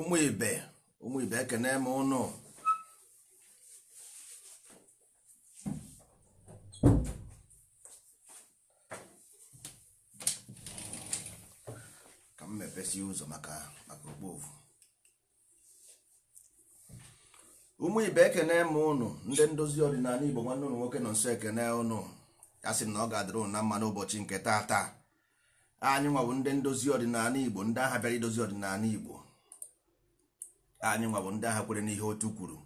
ụmụ ibe ụmụ ibe ekene m ụnụ ka m mepesi ụzọ maka maka okpovu ụmụ ibe ekene m ụnụ ndị ndozi ọdịnala igbo nwanne ụnụ nwoke nọ nso ekene ụnụ ya sị na ọ ga-adịrị na mma n'ụbọchị nke taa taa anyị nwa ndị ndozi ọdịnala igbo ndị agha bịara idozi ọdịnala igbo anyị nwabụ ndị agha kwere n'ihe otu kwuru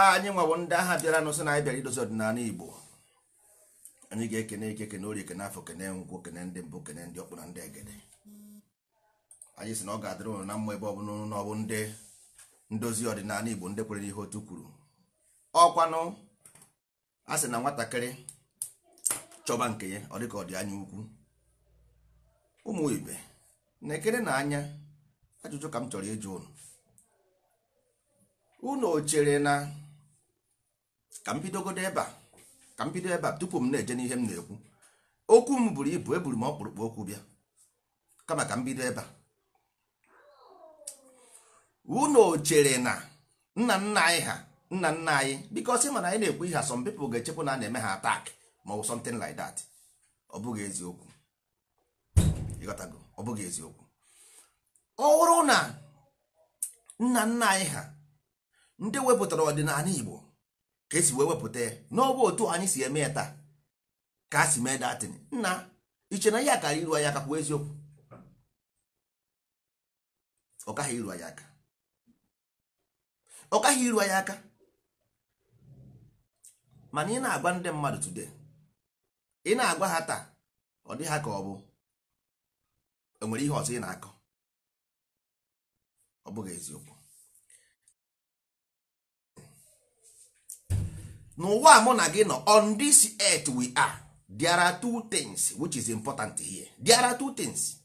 anyị nwabụ ndị agha bịara n'ụsị na anyị bịara idozi ọdịnala igbo anyị ga-ekene ike kene orie kene afọ kene nkwụ kene ndị mbụ kene ndị ọkpụ na ndị egede anyị sị na ọ ga-adịrị ụlọ na mma ebe ọ bụ na ọ bụ ndị ndozi ọdịnala igbo ndị kwere n'ihe otu kwuru ọkwanụ a sị na nwatakịrị chọba nke ya ọ dịka ọ dị anya ukwu ụmụ ibe na-ekere na anya ajụjụ ka m chọrọ ịjụ ụnụ unu chere na ka m bidogodo ebe a ka m bido ebe a tupu m na-eje n'ihe m na-ekwu okwu m buru ibu eburu m ọkpụrụkpụ okwu bịa kama ka m bido ebe a unu chere na nna nna anyị ha nna nna anyị biko sị mana anyị na-ekwu ihe some people ga-echekwa na a na-eme ha atak ma ọ bụ something like that ọ bụghị eziokwu ịghọtago ọ bụghị eziokwu ọ bụrụ na nna nna anyị ha ndị wepụtara ọdịnala igbo ka esi wee wepụta ya n'ọbụ otu anyị si eme ya taa ka a si mee datin nna iche na ya kara iru anyị aka kwuo eziokwu ọkaghị iru anyị aka iru anyị aka mana ị na-agwa ndị mmadụ today ị na-agwa ha taa ọ dị ha ka ọ bụ enwere ihe ọzọ ị na-akọ ọ bụghị eziokwu n'ụwa mụ na gị nọ on this earth we are there are two things which is important here there are two things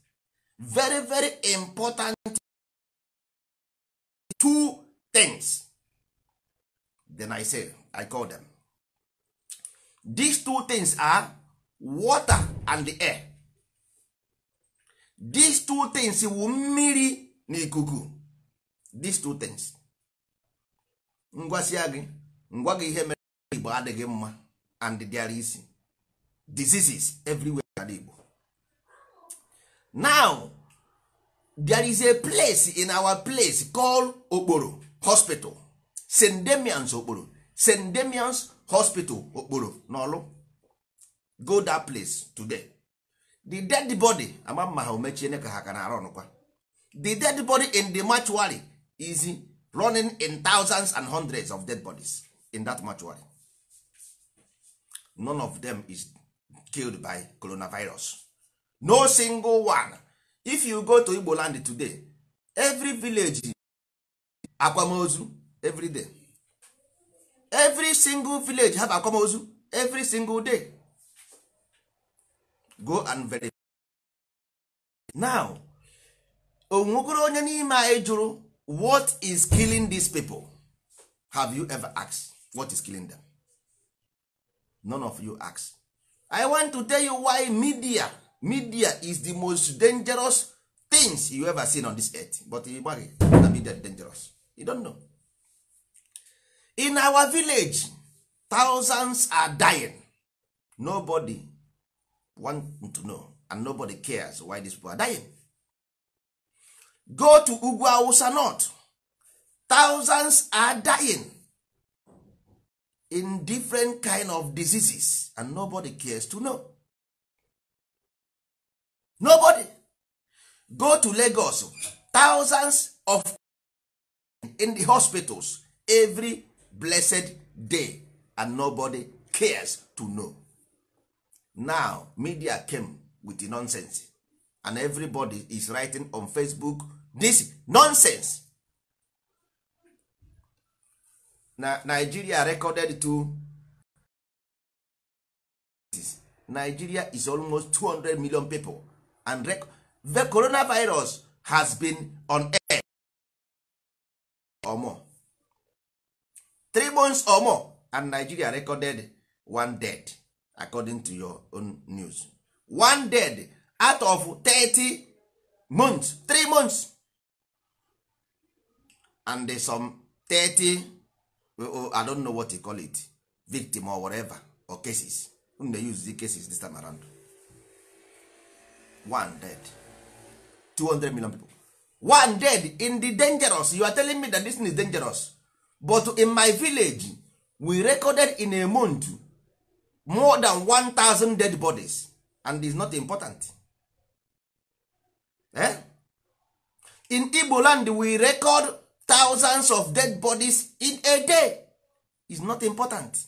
very very important two things then i say i call them these two things are water and the air these two things wu mmiri na ikuku these two things ngwasi gị ngwa gị ihe igbo adịghị mma and di is diseases everywhere in igbo now there is a place in our place called okporo hospital st demians okporo st demians hospital okporo n'ọlụ go that place today the dead body ama mma ha omechiene ka ha ka na-arụ the dead body in the mortuary is running in thousands and hundreds of dead bodies in that mortuary none of them is killed by coronavirus no single one if you go to igbo land today every village akwamozu every day every single village have akwamozu every single day go and verify now onwegoro onye n'ime anyị jụrụ what is killing these people have you ever asked what is killing them none of you ask i want to tell you why media media is the most dangerous things you ever seen on this earth but igbaghị na media dangerous you don't know in our village thousands are dying nobody want to know and nobody cares why these people are dying go to ugwu awusa north thousands are dying in different kind of diseases and nobody cares to know nobody go to Lagos thousands of in the hospitals every blessed day and nobody cares to know now media came with the nonsense and everybody is writing on Facebook this nonsense na nigeria recorded to nigeria is almost 200 million people and rec the coronavirus has been on air or more three months or more and nigeria recorded one dead according to your own news one dead out of 30 months three months and some 30 Oh, i don't know what you call it victim or whatever or cases unu na-use the cases this time around one dead 200 million people one dead in the dangerous you are telling me that this is dangerous but in my village we recorded in a month more than 1000 dead bodies and is not important eh? in igbo land we record thousands of dead bodies in a day is not important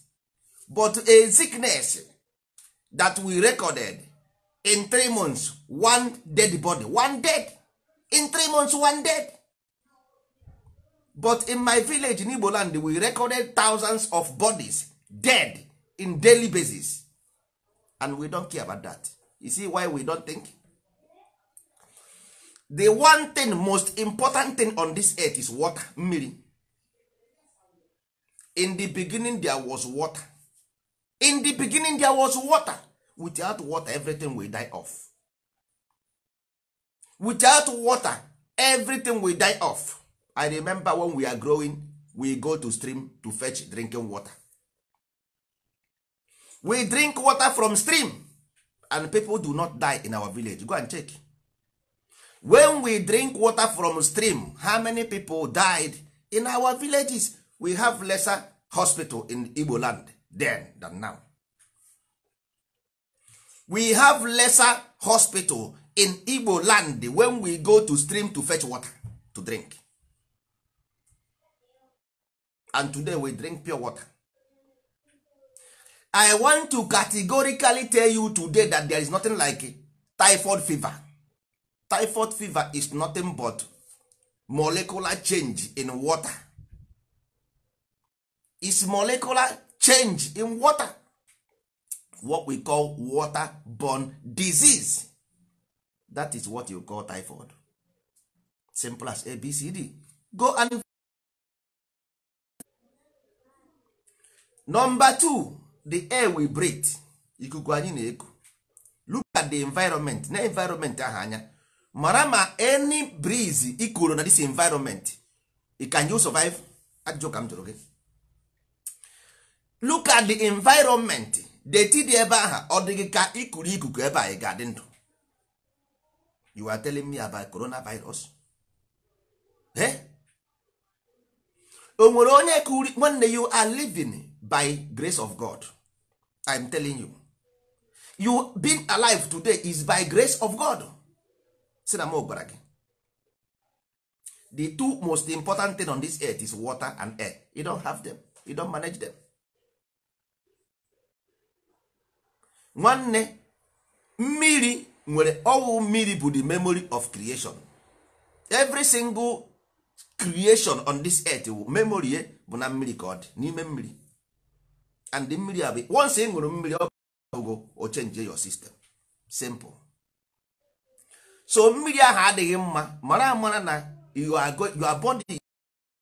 but a sickness that we recorded in three months one dead body one dead in three months one dead but in my village in Igbo land we recorded thousands of bodies dead in daily basis and we don't care about that you see why we don't think the one thing most important thing on this earth is water mmiri in the beginning there was water in the beginning there was water without water everything will die off without water everything will die off i remember when we are growing we go to stream to fetch drinking water we drink water from stream and people do not die in our village go and check when we drink water from stream how many people died in our villages we have lesser hospital in igbo land then than now we have lesser hospital in igbo land when we go to stream to fetch water to drink and today we drink pure water i want to categorically tell you today that there is nothing like typhoid fever typhoid fever is nothing but molecular change in water is molecular change in water what we call waterborne disease that is what you call typhoid simple as abcd go and number two the air we breathe ikuku anyị na-eku look at the environment na environment ahụ anya mara ma any breeze ikuru na this environment can you survive ajụjụ ka m jụrụ gị look at the environment deti dị ebe aha ọ dịghị ka ikuru ikuku ebe anyị ga-adị ndụ you are telling me about coronavirus eh? o nwere onye kuri nwanne you are living by grace of god i'm telling you you being alive today is by grace of god si na m gwara gị the two most important thing on this earth is water and air you don't have them you don't manage them nwanne mmiri nwere ọwụ mmiri bụ the memory of creation every single creation on this earth memory ye bụ na mmiri ka ọ dị n'ime mmiri and the mmiri abụ once ị ṅụrụ mmiri ọ bụgo o change your system simple so mmiri ahụ adịghị mma mara amara na your body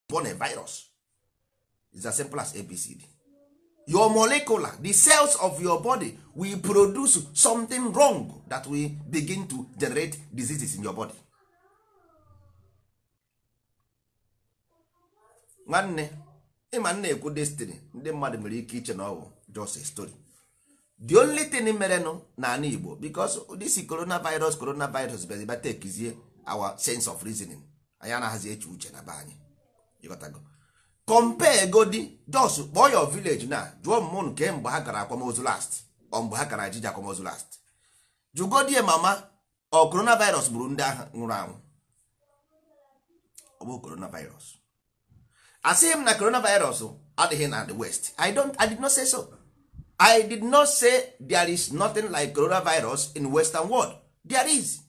born a virus is as simple as abcd your molecular the cells of your body will produce something wrong that will begin to generate diseases in your body nwanne ịma nna ekwu destiny ndị mmadụ mere ike iche na ọ just a story the only thing merenụ n'ala Igbo because this coronavirus coronavirus bịaziba tekizie our sense of reasoning anyị anaghịzi eche uche na be anyị ịghọtago compare godi jos kpọọ your village na jụọ mmụ nke mgbe ha gara akwamozu last ọ mgbe ha gara ajiji akwamozu last jụgodie mama ọ coronavirus gburu ndị agha nwụrụ anwụ ọ bụ coronavirus asịghị m na coronavirus adịghị na the west i don't i did not say so i did not say there is nothing like coronavirus in western world there is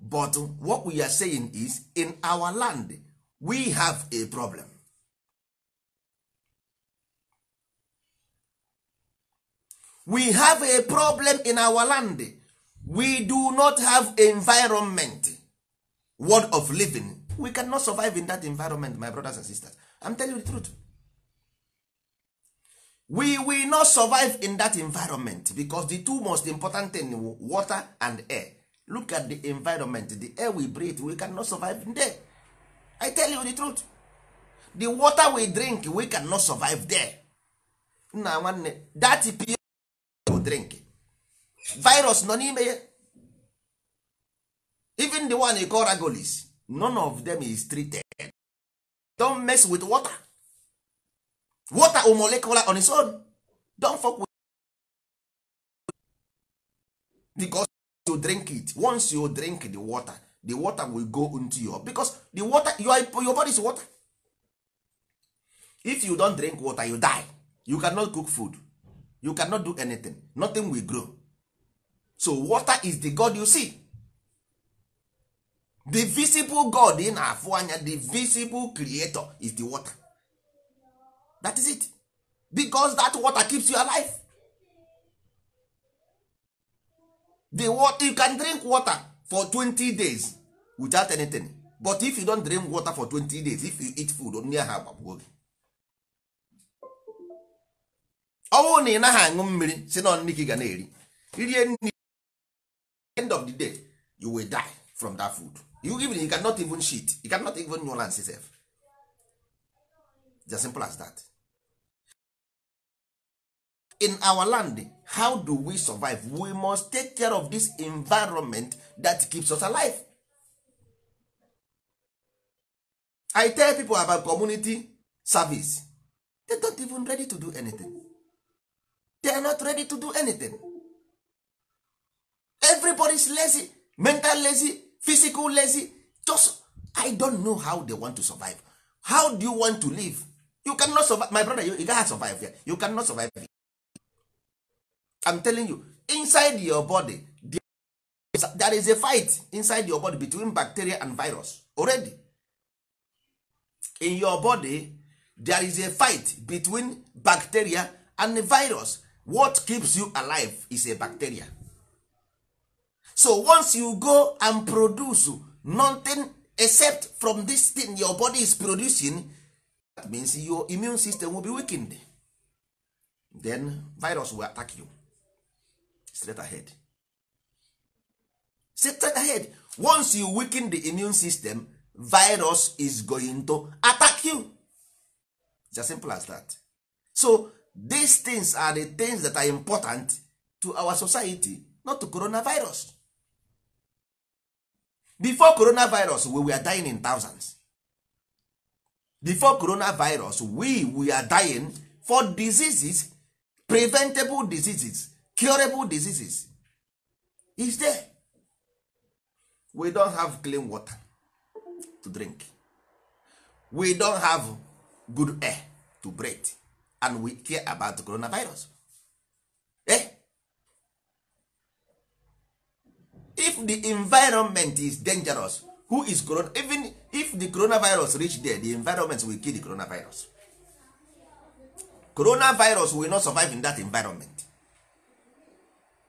but what we are saying is in our land we have a problem we have a problem in our land we do not have environment word of living we cannot survive in that environment my brothers and sisters i'm telling you the truth we will not survive in that environment because the two most important thing water and air look at the environment the air we breathe we cannot survive there i tell you the truth the water we drink we cannot survive there nna nwanne that pure drink virus nọ n'ime ya even the one we call ragolis none of them is treated don't mess with water water or molecular on its own don't fuck with because you drink it once you drink the water the water will go into your because the water your, your body is water if you don drink water you die you cannot cook food you cannot do anything nothing will grow so water is the god you see the visible god in na anya the visible creator is the water that is it because that water keeps you alive the water you can drink water for 20 days without anything but if you don drink water for 20 days if you eat food onye ha agbagbuo gị ọnwụ na ị naghị aṅụ mmiri si na nri ga na-eri irie nri end of the day you will die from that food you even you cannot even shit you cannot even nuance yourself. It's as simple as that. in our land how do we survive we must take care of this environment that keeps us alive i tell people about community service they don't even ready to do anything they are not ready to do anything is lazy mental lazy physical lazy just i don't know how they want to survive how do you want to live you cannot survive my brother you, you survive here. you cannot survive here. I'm telling you inside your body there is a fight inside your body between bacteria and virus already in your body there is a fight between bacteria and virus what keeps you alive is a bacteria so once you go and produce nothing except from this thing your body is producing that means your immune system will be weakened then virus will attack you straight ahead straight ahead once you weaken the immune system virus is going to attack you it's as simple as that so these things are the things that are important to our society not to coronavirus before coronavirus we were dying in thousands before coronavirus we we are dying for diseases preventable diseases curable diseases is there we don have clean water to drink we don have good air to breathe and we care about coronavirus eh? if the environment is dangerous who is corona even if the coronavirus reach there the environment will kill the coronavirus coronavirus will not survive in that environment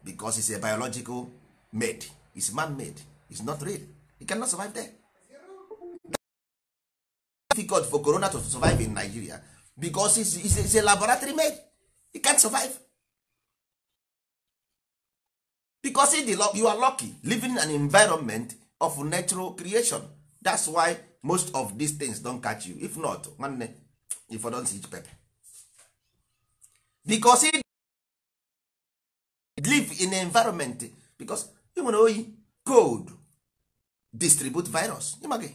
because it's a biological made it's man made it's not real you cannot survive there difficult for corona to survive in nigeria because it's, a laboratory made you can't survive because you are lucky living in an environment of natural creation that's why most of these things don catch you if not nwanne if I don see pepper because live in environment because ị nwere oyi cold distribute virus ịmaghị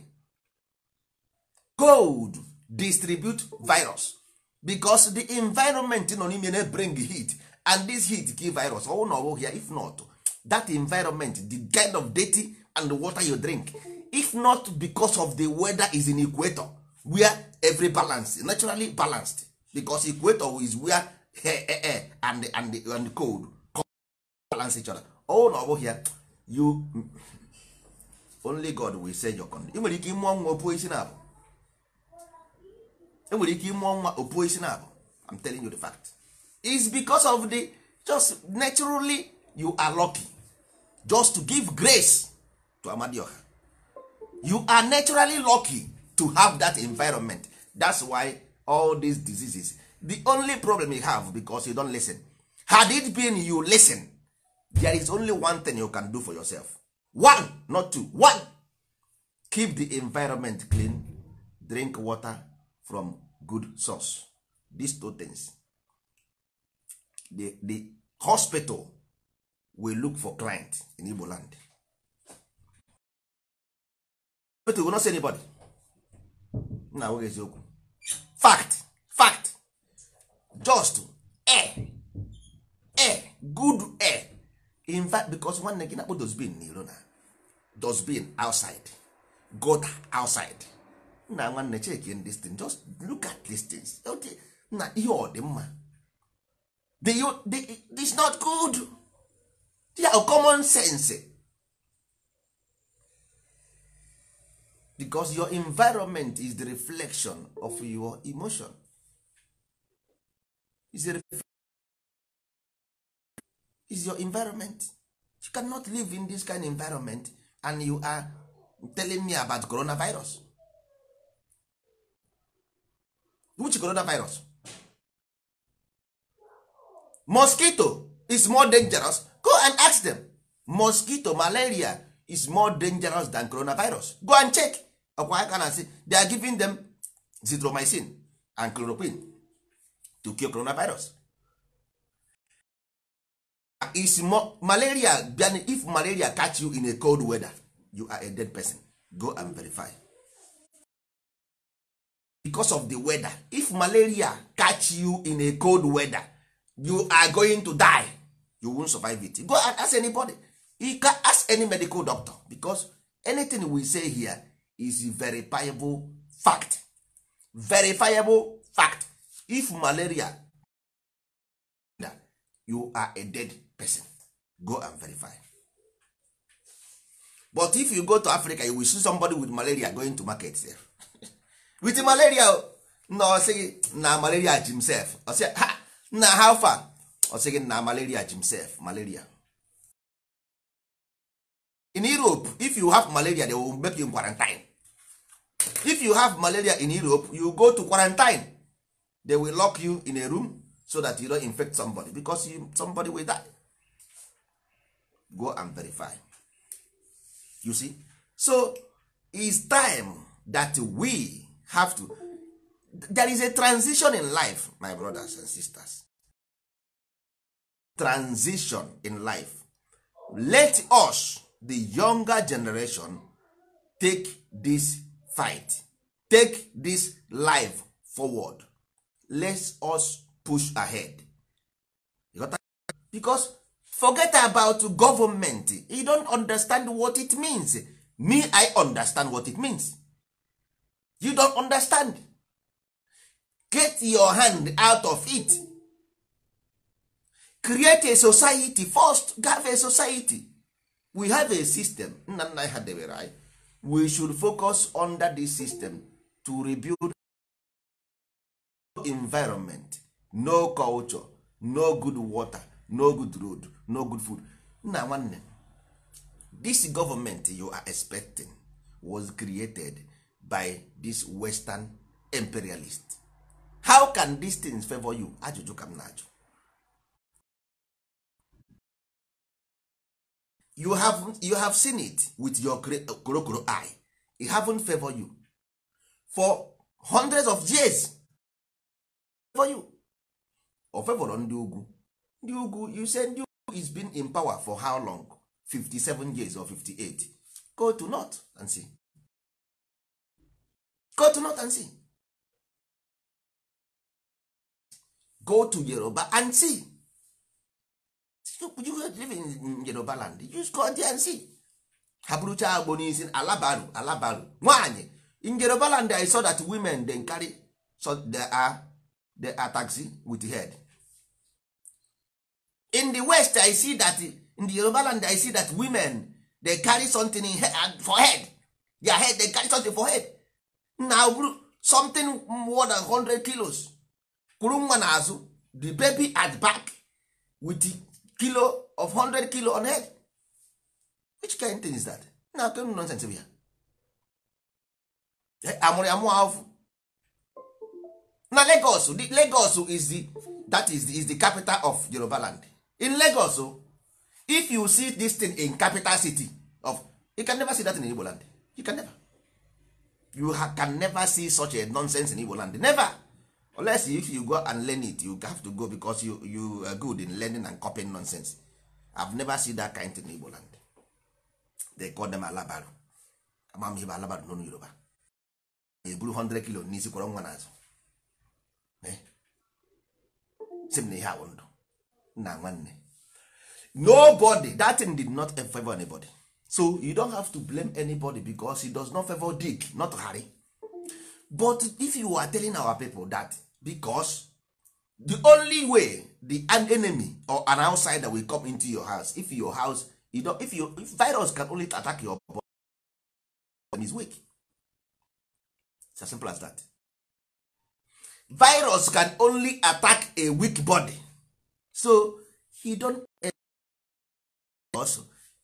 cold distribute virus because the environment nọ n'ime na bring heat and this heat give virus ọwụ oh, na ọbụghị oh, ya if not that environment the kind of dirty and water you drink if not because of the weather is in equator where every balance naturally balanced because equator is where air, air, air and, and, and cold balance chọrọ oh, ọwụ na ọ bụghị ya you only God will say your condition ị nwere ike ịmụọ nwa opuo isi na-abụ e nwere ike ịmụọ nwa opuo isi na-abụ I'm telling you the fact is because of the just naturally you are lucky just to give grace to Amadioha you are naturally lucky to have that environment that's why all these diseases the only problem you have because you don't listen had it been you listen there is only one thing you can do for yourself one not two one keep the environment clean drink water from good source these two things the, the hospital will look for client in igbo land hospital will not see anybody na fact fact just in fact because nwanne gị na-akpọ dosbin na na dosbin outside gota outside nna nwanne again this thing just look at these things okay na ihe ọ dị mma this not good ya yeah, common sense because your environment is the reflection of your emotion is a is your environment you cannot live in this kind of environment and you are telling me about coronavirus which coronavirus mosquito is more dangerous go and ask them mosquito malaria is more dangerous than coronavirus go and check ọkwa aka na asị they are giving them zitromycin and chloroquine to cure coronavirus is more malaria if malaria catch you in a cold weather you are a dead person go and verify because of the weather if malaria catch you in a cold weather you are going to die you won't survive it go and ask anybody you can ask any medical doctor because anything we say here is verifiable fact verifiable fact if malaria you are a dead person go and verify but if you go to africa you will see somebody with malaria going to market there with malaria na ọsịghị na malaria jimself ọsị ha na how far ọsịghị na malaria jimself malaria in europe if you have malaria they will make you in quarantine if you have malaria in europe you go to quarantine they will lock you in a room so that you don't infect somebody because you, somebody will die go and verify you see so is time that we have to there is a transition in life my brothers and sisters transition in life let us the younger generation take this fight take this life forward let us push ahead because forget about government you don't understand what it means me i understand what it means you don't understand get your hand out of it create a society first have a society we have a system nna nna ha debere anyị we should focus under this system to rebuild environment no culture no good water no good road no good food nna nwanne this government you are expecting was created by this western imperialist how can these things favor you ajụjụ ka m na-ajụ you have, you have seen it with your korokoro eye it haven't favor you for hundreds of years favor you o favor ndị ugwu ndị ugwu you say ndị is been in power for how long 57 years or 58 go to north and see go to north and see go to yoruba and see you live in yoruba land you go there and see ha bụrụcha agbo n'isi alabaru alabaru in yoruba land i saw that women dem carry so they are, they are taxi with head in the west i see that in the yoruba land i see that women dey carry something in head, uh, for head their head dey carry something for head na something more than 100 kilos kwuru nwa n'azụ the baby at back with the kilo of 100 kilo on head which kind thing is that na akụrụ nonsense bụ ya amụrụ ya mụọ afụ na Lagos Lagos is the that is the, is the capital of Yoruba land in Lagos o oh, if you see this thing in capital city of you can never see that in Igbo land you can never you ha, can never see such a nonsense in Igbo land never unless if you go and learn it you have to go because you, you are good in learning and copying nonsense I've never seen that kind thing in Igbo land they call them alabaru amam ihe alabaru n'onu Yoruba eburu 100 kilo n'isi kwọrọ nwa n'azụ sị m na ihe awụ ndụ na nwanne nobody that thing did not favor anybody so you don't have to blame anybody because it does not favor dick not harry but if you are telling our people that because the only way the an enemy or an outsider will come into your house if your house you don't, if your if virus can only attack your body is weak it's as simple as that virus can only attack a weak body so he don't also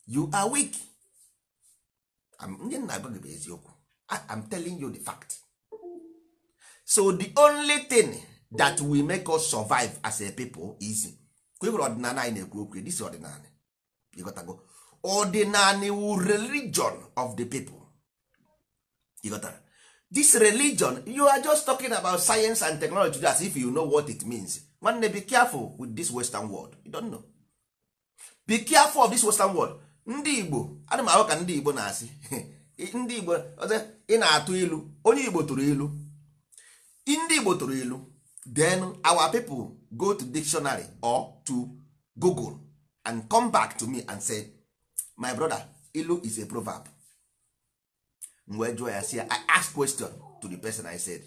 you are weak ndị nna gị bụ eziokwu I'm telling you the fact so the only thing that will make us survive as a people is kwebere ọdịnala anyị na-ekwu okwu this ọdịnala ịghọtago go wu religion of the people ịghọtara this religion you are just talking about science and technology as if you know what it means nwanne be careful with this western world you don't know be careful of this western world ndị igbo ana m ahụ ka ndị igbo na-asị ndị igbo ọzọ ị na-atụ ilu onye igbo tụrụ ilu ndị igbo tụrụ ilu then our people go to dictionary or to google and come back to me and say my brother ilu is a proverb m wee jụọ ya si i ask question to the person i said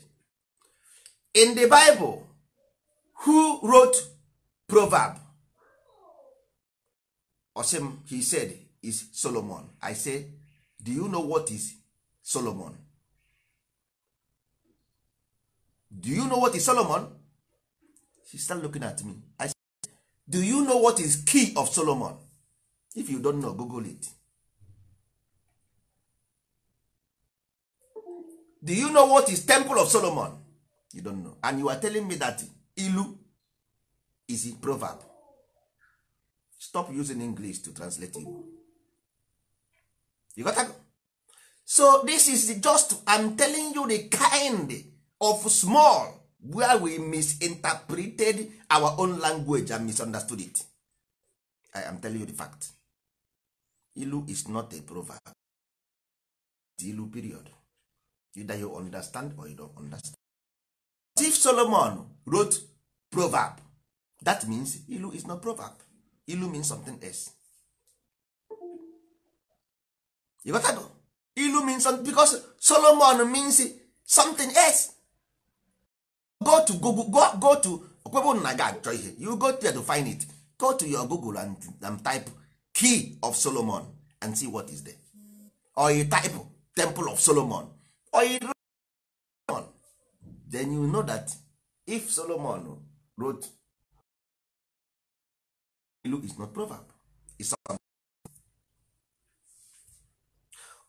in the bible who wrote proverb osim he said is solomon i say do you know what is solomon do you know what is solomon she start looking at me i say do you know what is key of solomon if you don't know google it do you know what is temple of solomon you don't know and you are telling me that ilu is a proverb stop using english to translate igbo you got that? so this is just i'm telling you the kind of small where we misinterpreted our own language and misunderstood it i am telling you the fact ilu is not a proverb it's ilu period either you understand or you don't understand if Solomon wrote proverb that means ilu is not proverb ilu means something else you got go ilu means something because Solomon means something else go to Google go, go to okwebụ na ga achọ ihe you go there to find it go to your Google and, and type key of Solomon and see what is there or you type temple of Solomon or you then you know that if solomon wrote is not proverb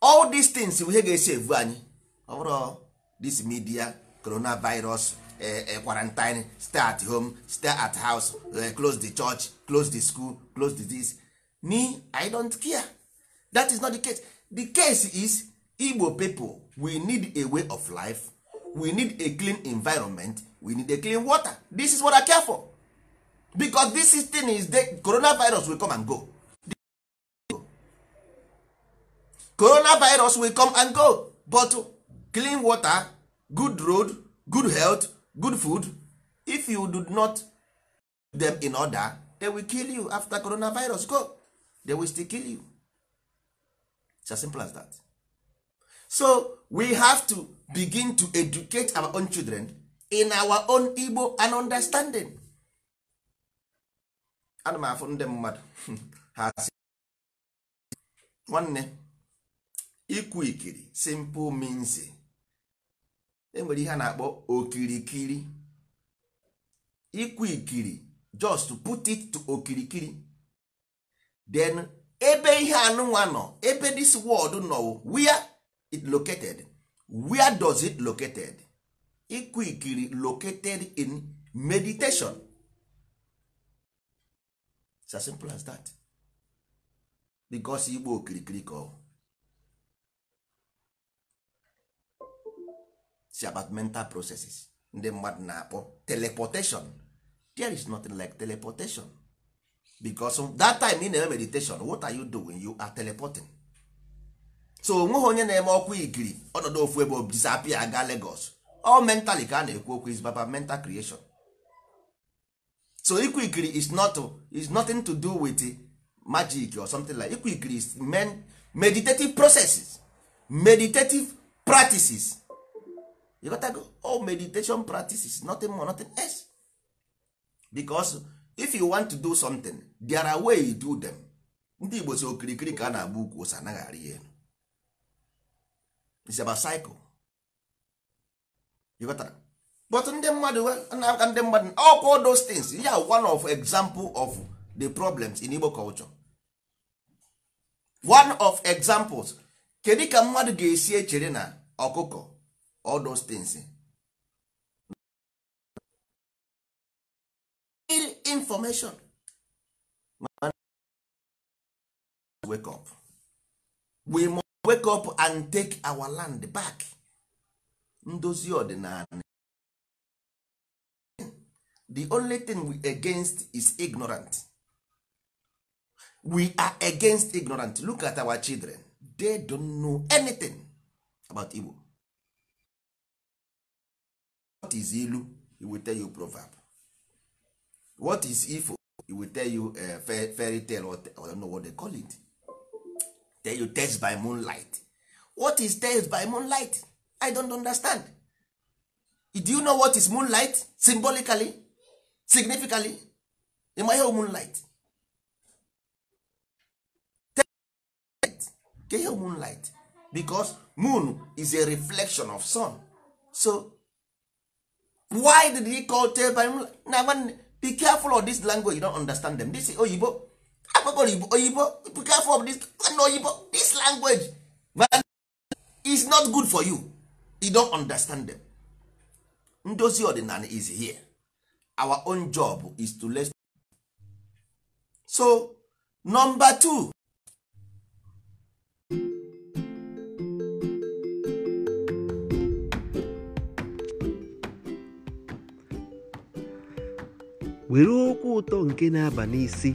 all these things ihe ga-esi evu anyị ọ bụrụ this media coronavirus eh, eh, quarantine stay at home stay at house eh, close the church close the school close the this me i don't care that is not the case the case is igbo people we need a way of life we need a clean environment we need a clean water this is what i care for because this is thing is the coronavirus will come and go coronavirus will come and go but clean water good road good health good food if you do not them in order they will kill you after coronavirus go they will still kill you it's as simple as that so we have to begin to educate our own children in our own igbo and understanding ana m afụ ndị mmadụ ha si nwanne ikwu ikiri simple means enwere e ihe a na-akpọ okirikiri ikwu ikiri just put it to okirikiri then ebe ihe anụnwa nọ ebe this world nọ where it located where does it located ịkụ ikiri located in meditation it's as simple as that because igbo okirikiri ka ọ si about mental processes ndị mmadụ na-akpọ teleportation there is nothing like teleportation because that time ị na-eme meditation what are you doing you are teleporting so onweghị onye na-eme ọkwa ikiri ọnọdụ ofu ebe disapia aga Lagos ọ mentally ka a na-ekwu okwu is baba mental creation so ikwu ikiri is not is nothing to do with magic or something like ikwu ikiri is men meditative processes meditative practices you got to go all meditation practices nothing more nothing else because if you want to do something there are way you do them ndị Igbo so okirikiri ka a na-agba ukwu ose anaghị arị elu it's about cycle you got that? but ndị mmadụ na-aka ndị mmadụ ọkwa those things ya yeah, one of example of the problems in Igbo culture one of examples kedu ka mmadụ ga-esi echere na ọkụkọ all those things information wake up we wake up and take our land back ndozi ọdịnala the only thing we against is ignorant we are against ignorant look at our children they don't know anything about Igbo what is ilu he will tell you proverb what is ifo he will tell you a eh, fairy tale or I don't know what they call it then you test by moonlight what is test by moonlight i don't understand do you know what is moonlight symbolically significantly ịma ihe moonlight ka ihe moonlight because moon is a reflection of sun so why did he call tell by moonlight? na be careful of this language you don't understand them this oyibo akpọkọrọ oyibo be careful of this na oyibo this language is not good for you you don understand them ndozi ọdịnala is here our own job is to let so number two were okwu ụtọ nke na-aba n'isi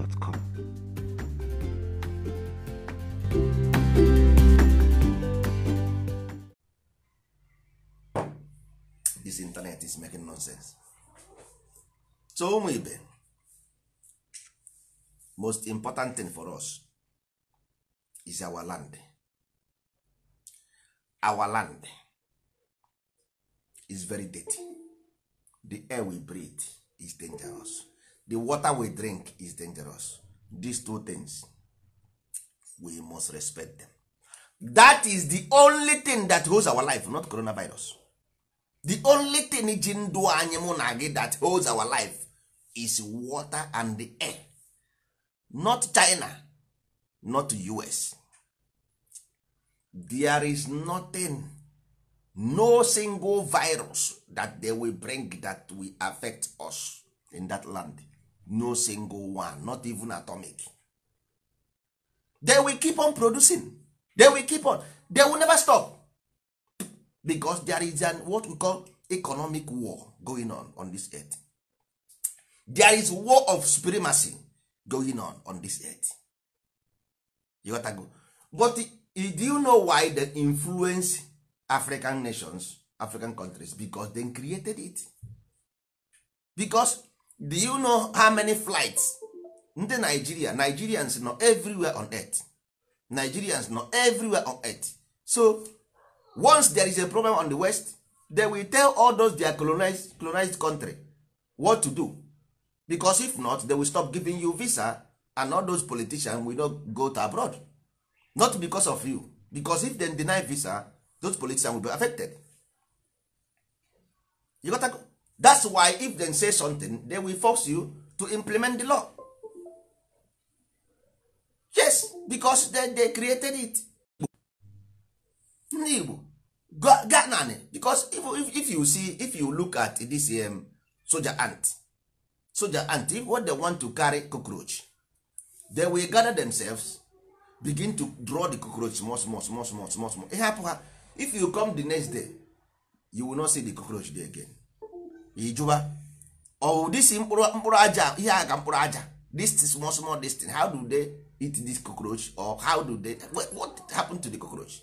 dis this internet is making nonsense so ụmụ most important thing for us is our land our land is very dirty the air we breathe is dangerous the water we drink is dangerous these two things we must respect them that is the only thing that holds our life not coronavirus the only thing ji ndụ anyị mụ na gị that holds our life is water and the air not china not us there is nothing no single virus that they will bring that will affect us in that land no single one not even atomic they will keep on producing they will keep on they will never stop because there is an what we call economic war going on on this earth there is war of supremacy going on on this earth you got go but do you know why they influence african nations african countries because they created it because do you know how many flights ndị Nigeria Nigerians nọ everywhere on earth Nigerians nọ everywhere on earth so once there is a problem on the west they will tell all those their colonized, colonized country what to do because if not they will stop giving you visa and all those politicians will not go to abroad not because of you because if they deny visa those politicians will be affected you got that's why if they say something they will force you to implement the law yes because they, they created it ndị igbo ganani because if, if, you see if you look at this um, soldier ant soldier ant if what they want to carry cockroach they will gather themselves begin to draw the cockroach small small small small small small ịhapụ ha if you come di next day you will not see di cockroach there again ijuba ọwụ disi mkpụrụ aja ihe a ga mkpụrụ aja this small small distance how do they eat this cockroach or how do they what happened to the cockroach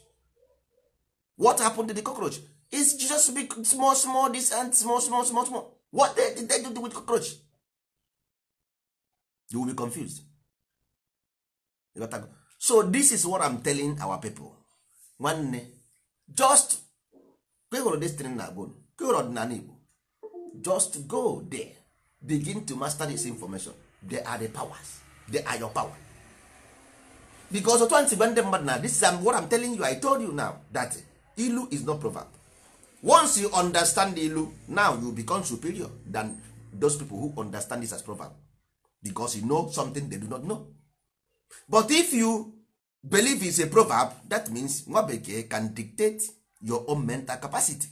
what happened to the cockroach is just big small small this and small small small small what they, did they do with cockroach you will be confused so this is what i'm telling our people nwanne just kehụrụ destiny na bone kehụrụ ọdịnala igbo just go there begin to master this information they are the powers they are your power because otu antigba ndị mmadụ na this is um, what I'm telling you I told you now that ilu is not proverb once you understand ilu now you become superior than those people who understand this as proverb because you know something they do not know but if you believe is a proverb that means nwa bekee can dictate your own mental capacity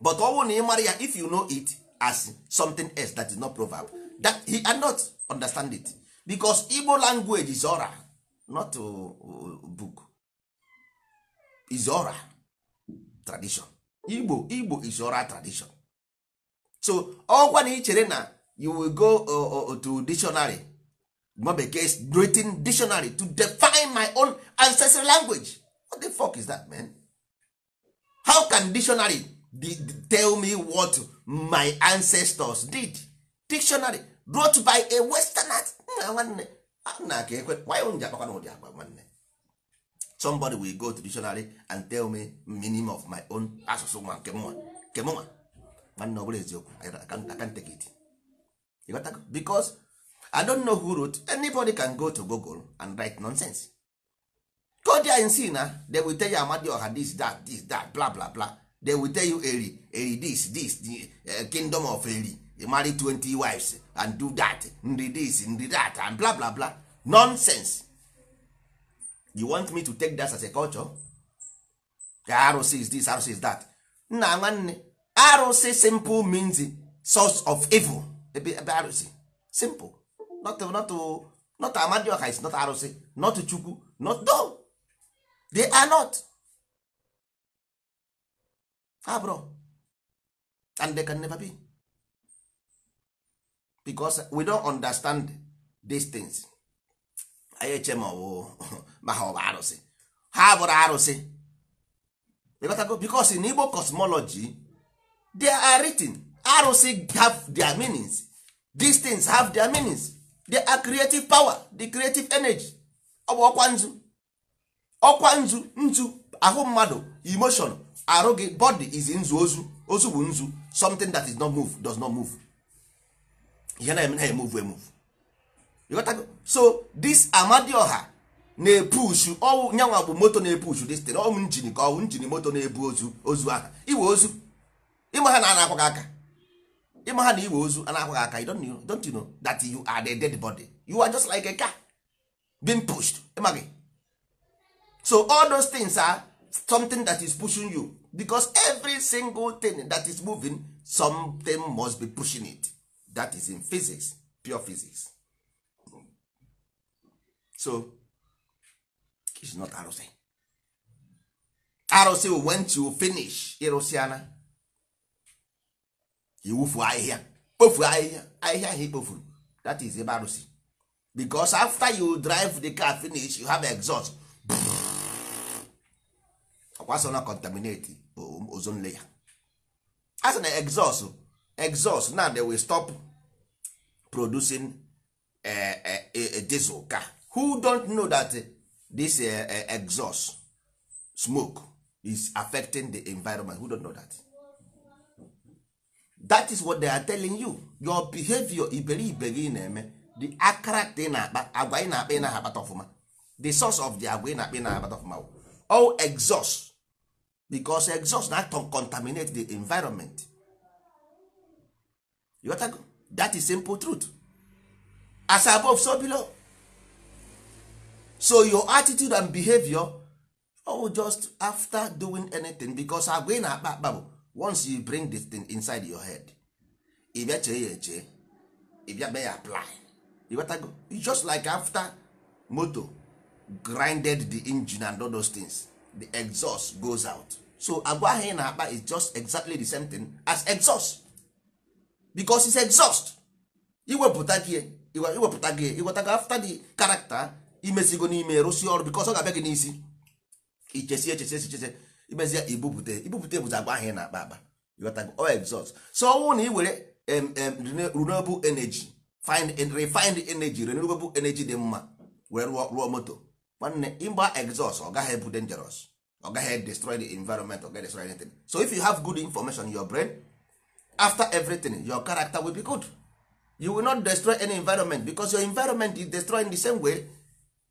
but ọ ni na ị mara ya if you know it as something else that is not proverb that he cannot understand it because Igbo language is oral not a uh, uh, book is oral tradition Igbo Igbo is oral tradition so ọkwa na ị chere na you will go uh, to dictionary nwa bekee written dictionary to define my own ancestral language what the fuck is that man how can dictionary tell me what my ancestors did dictionary brought by a western nna nwanne nna ka ekwe why ji akpakwa na ụdị nwanne somebody will go to dictionary and tell me meaning of my own asụsụ nwa nke mụnwa nke mụnwa nwanne ọ bụla eziokwu I can't take it because I don't know who wrote anybody can go to Google and write nonsense go there and see na they will tell you oha this that this that bla bla bla they will tell you eri eri this this the eh, kingdom of eri marry 20 wives and do that nri this nri that and bla bla bla nonsense you want me to take that as a culture ka arụsị is this arụsị is that nna nwanne arụsị simple means source of evil ebe ebe arụsị simple not not not amadioka is not arụsị not chukwu not no they are not habro ah, and they can never be because we don't understand these things anyị eche ma ọwụ ma ha ọ bụ arụsị ha bụrụ arụsị because in Igbo cosmology they are written arụsị have their meanings these things have their meanings they are creative power the creative energy ọ bụ ọkwa nzu ọkwa nzu nzu ahụ mmadụ emotion arụ gị body is nzu ozu ozu bụ nzu something that is not move does not move ihe na-eme na emove emove ịghọtago so this ọha na-epushu ọwụ nyanwa bụ moto na-epushu this thing ọwụ njini ka ọwụ njini moto na-ebu ozu ozu aha iwe ozu ịma ha na ana akwaghị aka ịma ha na iwe ozu ana akwaghị aka you don't know, don't you know that you are the dead body you are just like a car being pushed ịma gị so all those things are something that is pushing you because every single thing that is moving something must be pushing it that is in physics pure physics so is not arụsị arụsị went to finish ịrụsịana iwufu ahịhịa kpofu ahịhịa ahịhịa ahụ ikpofuru that is ebe arụsị because after you drive the car finish you have exhaust ọkwa asọ na contaminate ozone layer a sị na exhaust exhaust now they will stop producing eh, eh, diesel car who don't know that this eh, exhaust smoke is affecting the environment who don't know that that is what they are telling you your behavior iberibe gị na-eme the akara na-akpa agwa ị na-akpa ị na-akpata ọfụma the source of the agwa ị na-akpa ị na-akpata ọfụma all exhaust because exhaust na to contaminate the environment go? that is simple truth as above so below so your attitude and behavior oh just after doing anything because agwa ị na-akpa akpa bụ once you bring this thing inside your head ị bịa chee ya eche ị bịa mee ya apply you just like after motor grinded the engine and all those things the exhaust goes out so agwa ahụ ị na-akpa is just exactly the same thing as exhaust because it's exhaust iwepụta gị iwepụta gị iweta gị after the character imezigo n'ime rụsi ọrụ because ọ ga-abịa gị n'isi ichesi echesi echichese imezie ibupụta ibupụta bụzi agwa ahụ ị na-akpa akpa iwetago ọ exhaust so ọnwụ na ị were renewable energy find refined energy renewable energy dị mma were rụọ moto nwanne ịgba exhaust ọ gaghị ebu dangerous ọ gaghị destroy the environment ọ gaghị destroy anything so if you have good information in your brain after everything your character will be good you will not destroy any environment because your environment is destroying the same way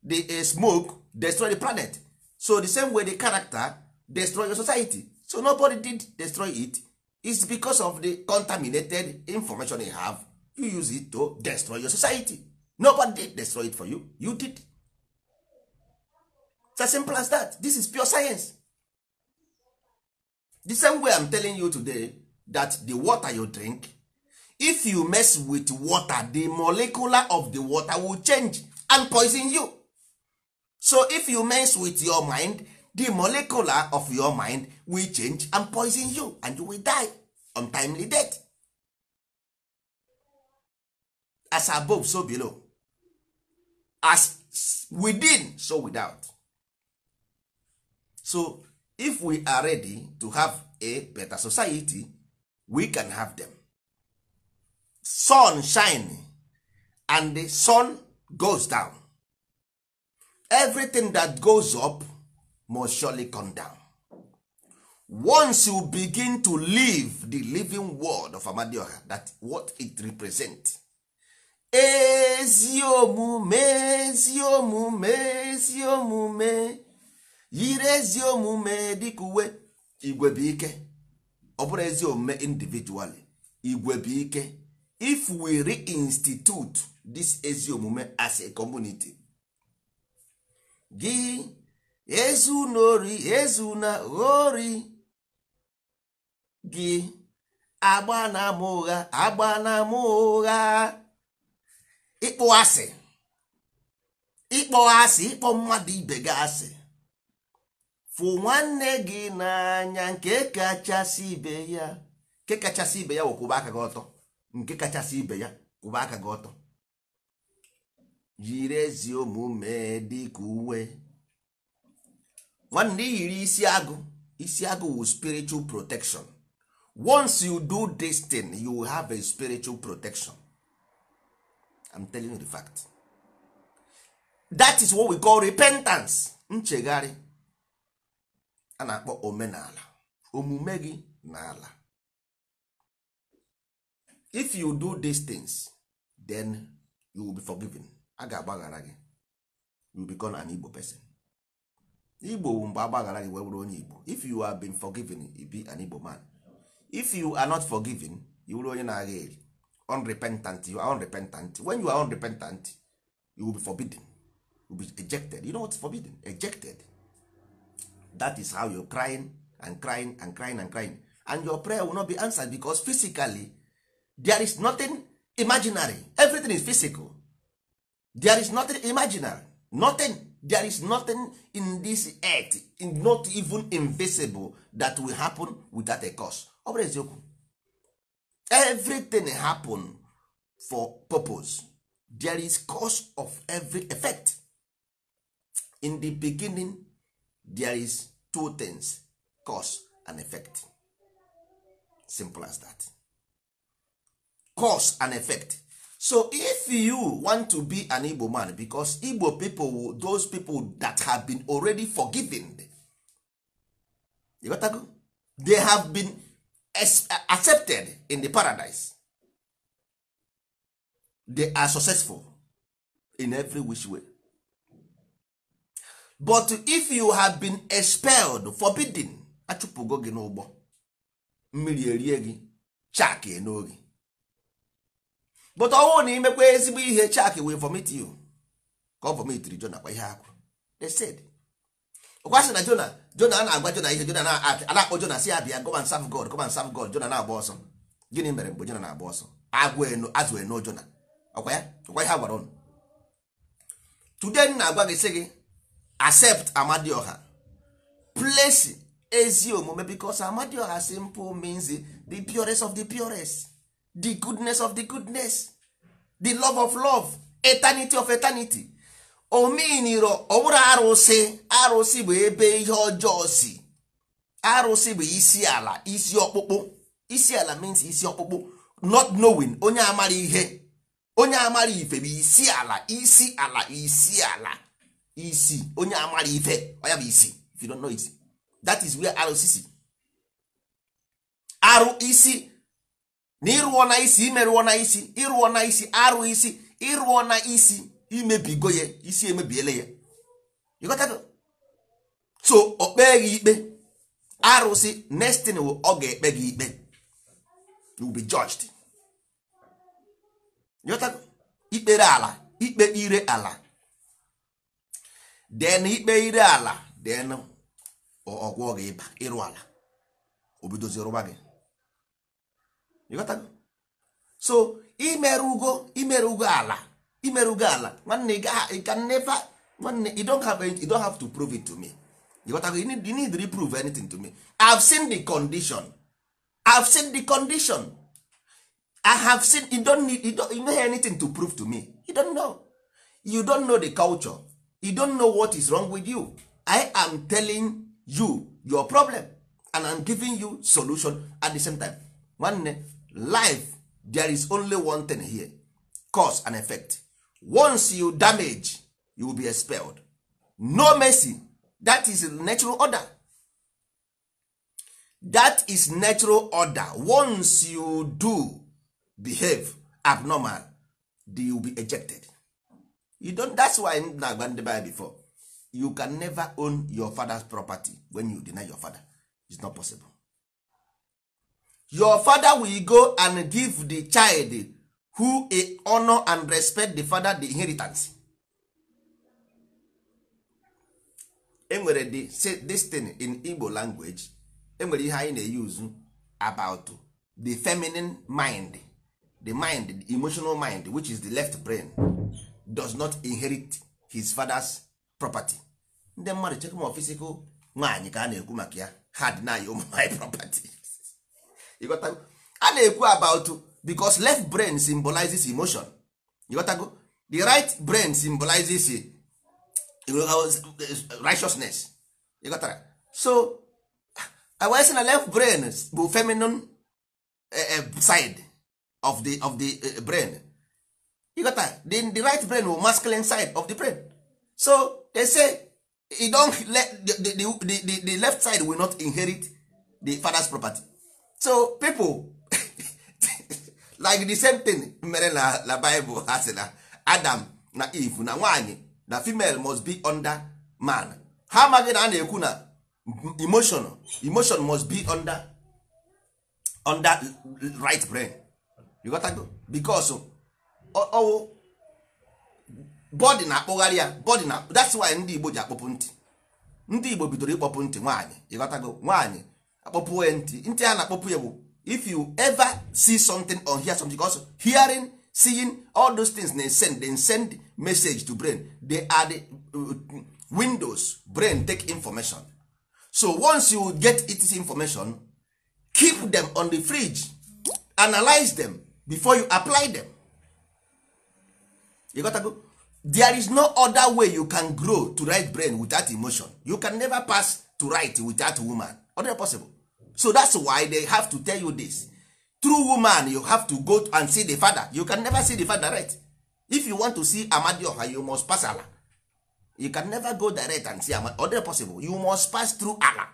the eh, smoke destroy the planet so the same way the character destroy your society so nobody did destroy it it's because of the contaminated information you have you use it to destroy your society nobody did destroy it for you you did It's as simple as that. This is pure science. The same way I'm telling you today that the water you drink, if you mess with water, the molecular of the water will change and poison you. So if you mess with your mind, the molecular of your mind will change and poison you and you will die untimely death. As above, so below. As within, so without. so if we are ready to have a better society we can have them sun shine and the sun goes down everything that goes up must surely come down once you begin to live the living world of amadioha that what it represents ezi omume ezi omume yiri ezi omume dịka uwe igwe ike ọ bụrụ ezi omume individually igwe ike if we reinstitute this ezi omume as a community gị ezu ezuna ghori gị agba na ama ụgha agba na ama ụgha ịkpọ asị ịkpọ asị ịkpọ mmadụ ibe gị asị fụ nwanne gị n'anya nke kachasị ibe ya nke kachasị ibe ya wụ ụba aka gị ọtọ nke kachasị ibe ya kwụba aka gị ọtọ yiri ezi omume dịka uwe nwanne yiri isi agụ isi agụ wụ spiritual protection once you do this thing you have a spiritual protection I'm telling you the fact that is what we call repentance nchegharị a na-akpọ omenala omume gị na ala if you do these things then you will be forgiven a ga-agbaghara gị you will become an Igbo person Igbo bụ mgbe agbaghara gị wee bụrụ onye Igbo if you have been forgiven you be an Igbo man if you are not forgiven you bụrụ onye na-agha eri unrepentant you are unrepentant when you are unrepentant you will be forbidden you will be ejected you know what's forbidden ejected that is how you crying and crying and crying and crying and your prayer will not be answered because physically there is nothing imaginary everything is physical there is nothing imaginary nothing there is nothing in this earth not even invisible that will happen without a cause ọ bụrụ eziokwu everything happen for purpose there is cause of every effect in the beginning there is two things cause and effect simple as that cause and effect so if you want to be an igbo man because igbo people those people that have been already forgiven you got to go? they have been accepted in the paradise they are successful in every which way but if you have been expelled forbidden achụpụgo gị n'ụgbọ mmiri erie gị chakị n'oge but ọnwụ na imekwa ezigbo ihe chak wee vomit you ka ọ vomitiri jona kwa ihe akwụ ọkwasị na jona jona a na-agwa jona ihe jona na-akpọ jona si abịa go sam god go sam god jona na-agba ọsọ gịnị mere mgbe jona na-agba ọsọ agwụ azụ eno jona ọkwa ya ọkwa ihe agwara ụnụ today na-agwa gị sị gị accept amadioha place ezi omume because amadioha simple means the purest of the purest the goodness of the goodness the love of love eternity of eternity omeniro ọbụrụ arụsị arụsị bụ ebe ihe ọjọọ si arụsị bụ isi ala isi ọkpụkpụ isi ala means isi ọkpụkpụ not knowing onye amara ihe onye amara ife bụ isi ala isi ala isi ala isi onye amara ife ọ bụ isi if you don't know it that is where rcc arụ isi na ịrụọ na isi imerụọ na isi ịrụọ na isi arụ isi ịrụọ na isi imebigo ya isi emebiele ya ịghọtago so ọ kpee gị ikpe arụsị nestin ọ ga-ekpe gị ikpe you be judged ịghọtago ikpere ala ikpe ire ala den ikpe ire ala den ọgwụọ gị ịba ịrụ ala obidozi rụba gị so imere ugo imere ugo ala imere ugo ala nwanne ị ka never nwanne you don't have, to prove it to me ịghọtago you, you need to prove anything to me I've seen the condition I've seen the condition I have seen you don't need you don't, you know anything to prove to me you don't know you don't know the culture you don't know what is wrong with you i am telling you your problem and i'm giving you solution at the same time nwanne life there is only one thing here cause and effect once you damage you will be expelled no mercy that is natural order that is natural order once you do behave abnormal you will be ejected you don't that's why na-agba ndị before you can never own your father's property when you deny your father it's not possible your father will go and give the child who a honor and respect the father the inheritance enwere the this thing in Igbo language enwere ihe anyị na-eyuzu about the feminine mind the mind the emotional mind which is the left brain does not inherit his father's property ndị mmadụ chekwa ma physical nwaanyị ka a na-ekwu maka ya ha dị naanị ụmụ nwaanyị property a na-ekwu about because left brain symbolizes emotion ịghọtago the right brain symbolizes uh, righteousness ịghọtara so wee sị na left brain bụ feminine uh, uh, side of the, of the brain you got that? the, the right brain or masculine side of the brain so they say you don't let the, the, the, the, left side will not inherit the father's property so people like the same thing mere na na bible ha si na adam na eve na nwanyị na female must be under man ha amaghị na a na-ekwu na emotion emotion must be under under right brain you got that? because ọwụ bọdị na-akpụgharị ya bọdị na that's why ndị Igbo ji akpọpụ ntị ndị Igbo bidoro ịkpọpụ ntị nwaanyị ịghọtago nwaanyị akpọpụ ya ntị ntị a na-akpọpụ ya bụ if you ever see something or hear something also hearing seeing all those things they send they send message to brain they are the uh, windows brain take information so once you get it information keep them on the fridge analyze them before you apply them ịghọtago there is no other way you can grow to write brain without emotion you can never pass to write without woman other possible so that's why they have to tell you this true woman you have to go and see the father you can never see the father right if you want to see amadioha you must pass ala you can never go direct and see amadi other possible you must pass through ala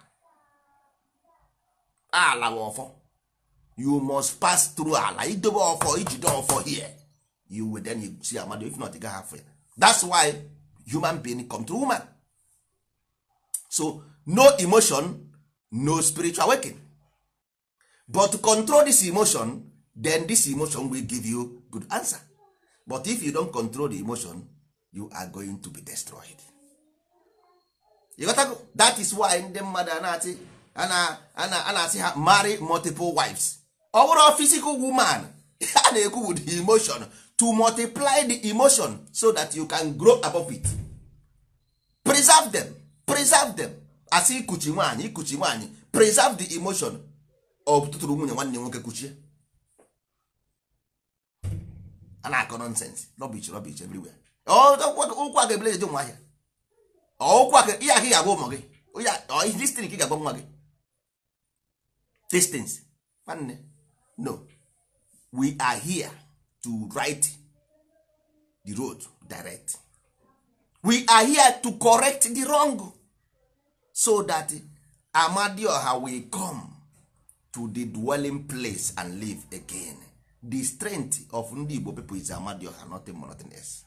ala bụ you must pass through ala idobe ọfọ ijide here you will then you see amado if not you gaghị afọ ya that's why human being come woman so no emotion no spiritual working but to control this emotion then this emotion will give you good answer but if you don't control the emotion you are going to be destroyed you got that is why ndị mmadụ a na-asị ha marry multiple wives ọ bụrụ physical woman a na-ekwu with emotion to multiply the emotion so that you can grow above it preserve them preserve them as ikuchi nwaanyị ikuchi nwaanyị preserve the emotion of tụtụrụ nwunye nwanne nwoke kuchie a na-akọ nonsense rubbish rubbish everywhere ụkwụ aka ebele eje nwa ahịa ụkwụ aka ihe aka ị ga-agwa ụmụ gị distin ka ị ga-agwa nwa gị distance nwanne no we are here to right the road direct we are here to correct the wrong so that amadioha will come to the dwelling place and live again the strength of ndị igbo people is amadioha nothing more nothing else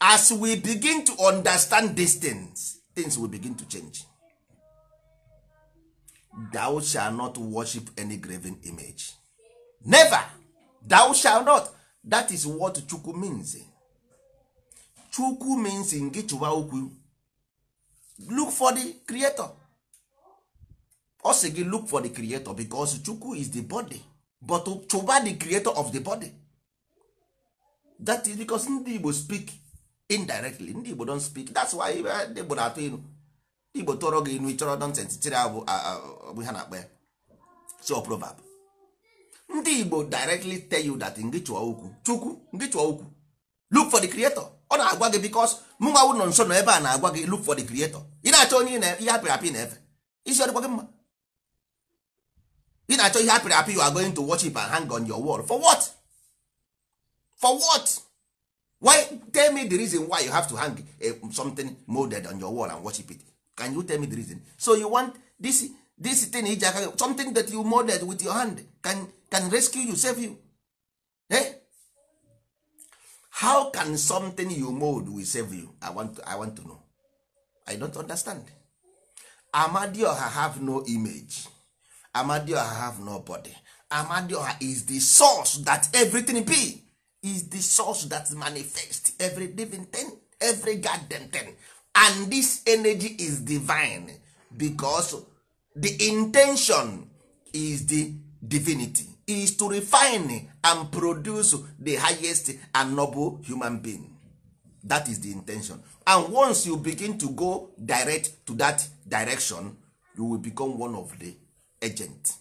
as we begin to understand these things things will begin to change thou shall not worship any graven image never thou shall not that is what chukwu means chukwu means nke chụwa okwu look for the creator ọ sị gị look for the creator because chukwu is the body but chụba the creator of the body that is because ndị igbo speak indirectly ndị igbo don speak that's why eh, ndị igbo na-atụ inu ndị igbo tụrọ gị inu ịchọrọ nonsense tiri abụ ha na-akpa ya so proverb ndị igbo directly tell you that ngị chụọ okwu chukwu ngị chụọ okwu look for the creator ọ na-agwa gị because mụnwa wụ nọ nso nọ ebe a na-agwa gị look for the creator ị na-achọ onye ihe apịrị apị na-efe isi ọ dịkwa gị mma ị na-achọ ihe apịrị apị you are going to worship and hang on your wall for what for what why tell me the reason why you have to hang a, eh, something molded on your wall and worship it can you tell me the reason so you want this this thing iji aka something that you molded with your hand can, can rescue you save you eh? how can something you mold will save you i want to, I want to know i don't understand amadioha have no image amadioha have no body amadioha is the source that everything be is the source that manifest every living thing every goddamn thing and this energy is divine because the intention is the divinity is to refine and produce the highest and noble human being that is the intention and once you begin to go direct to that direction you will become one of the agent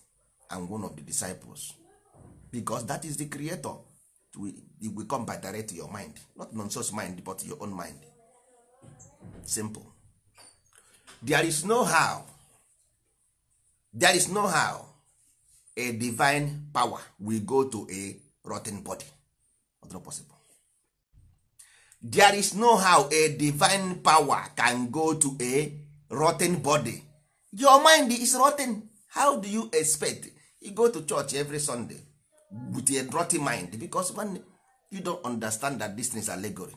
and one of the disciples because that is the creator we will come by direct to your mind not nonsense mind but your own mind simple there is no how there is no how a divine power will go to a rotten body possible there is no how a divine power can go to a rotten body your mind is rotten how do you expect you go to church every sunday with a rotten mind because when you don't understand that this is allegory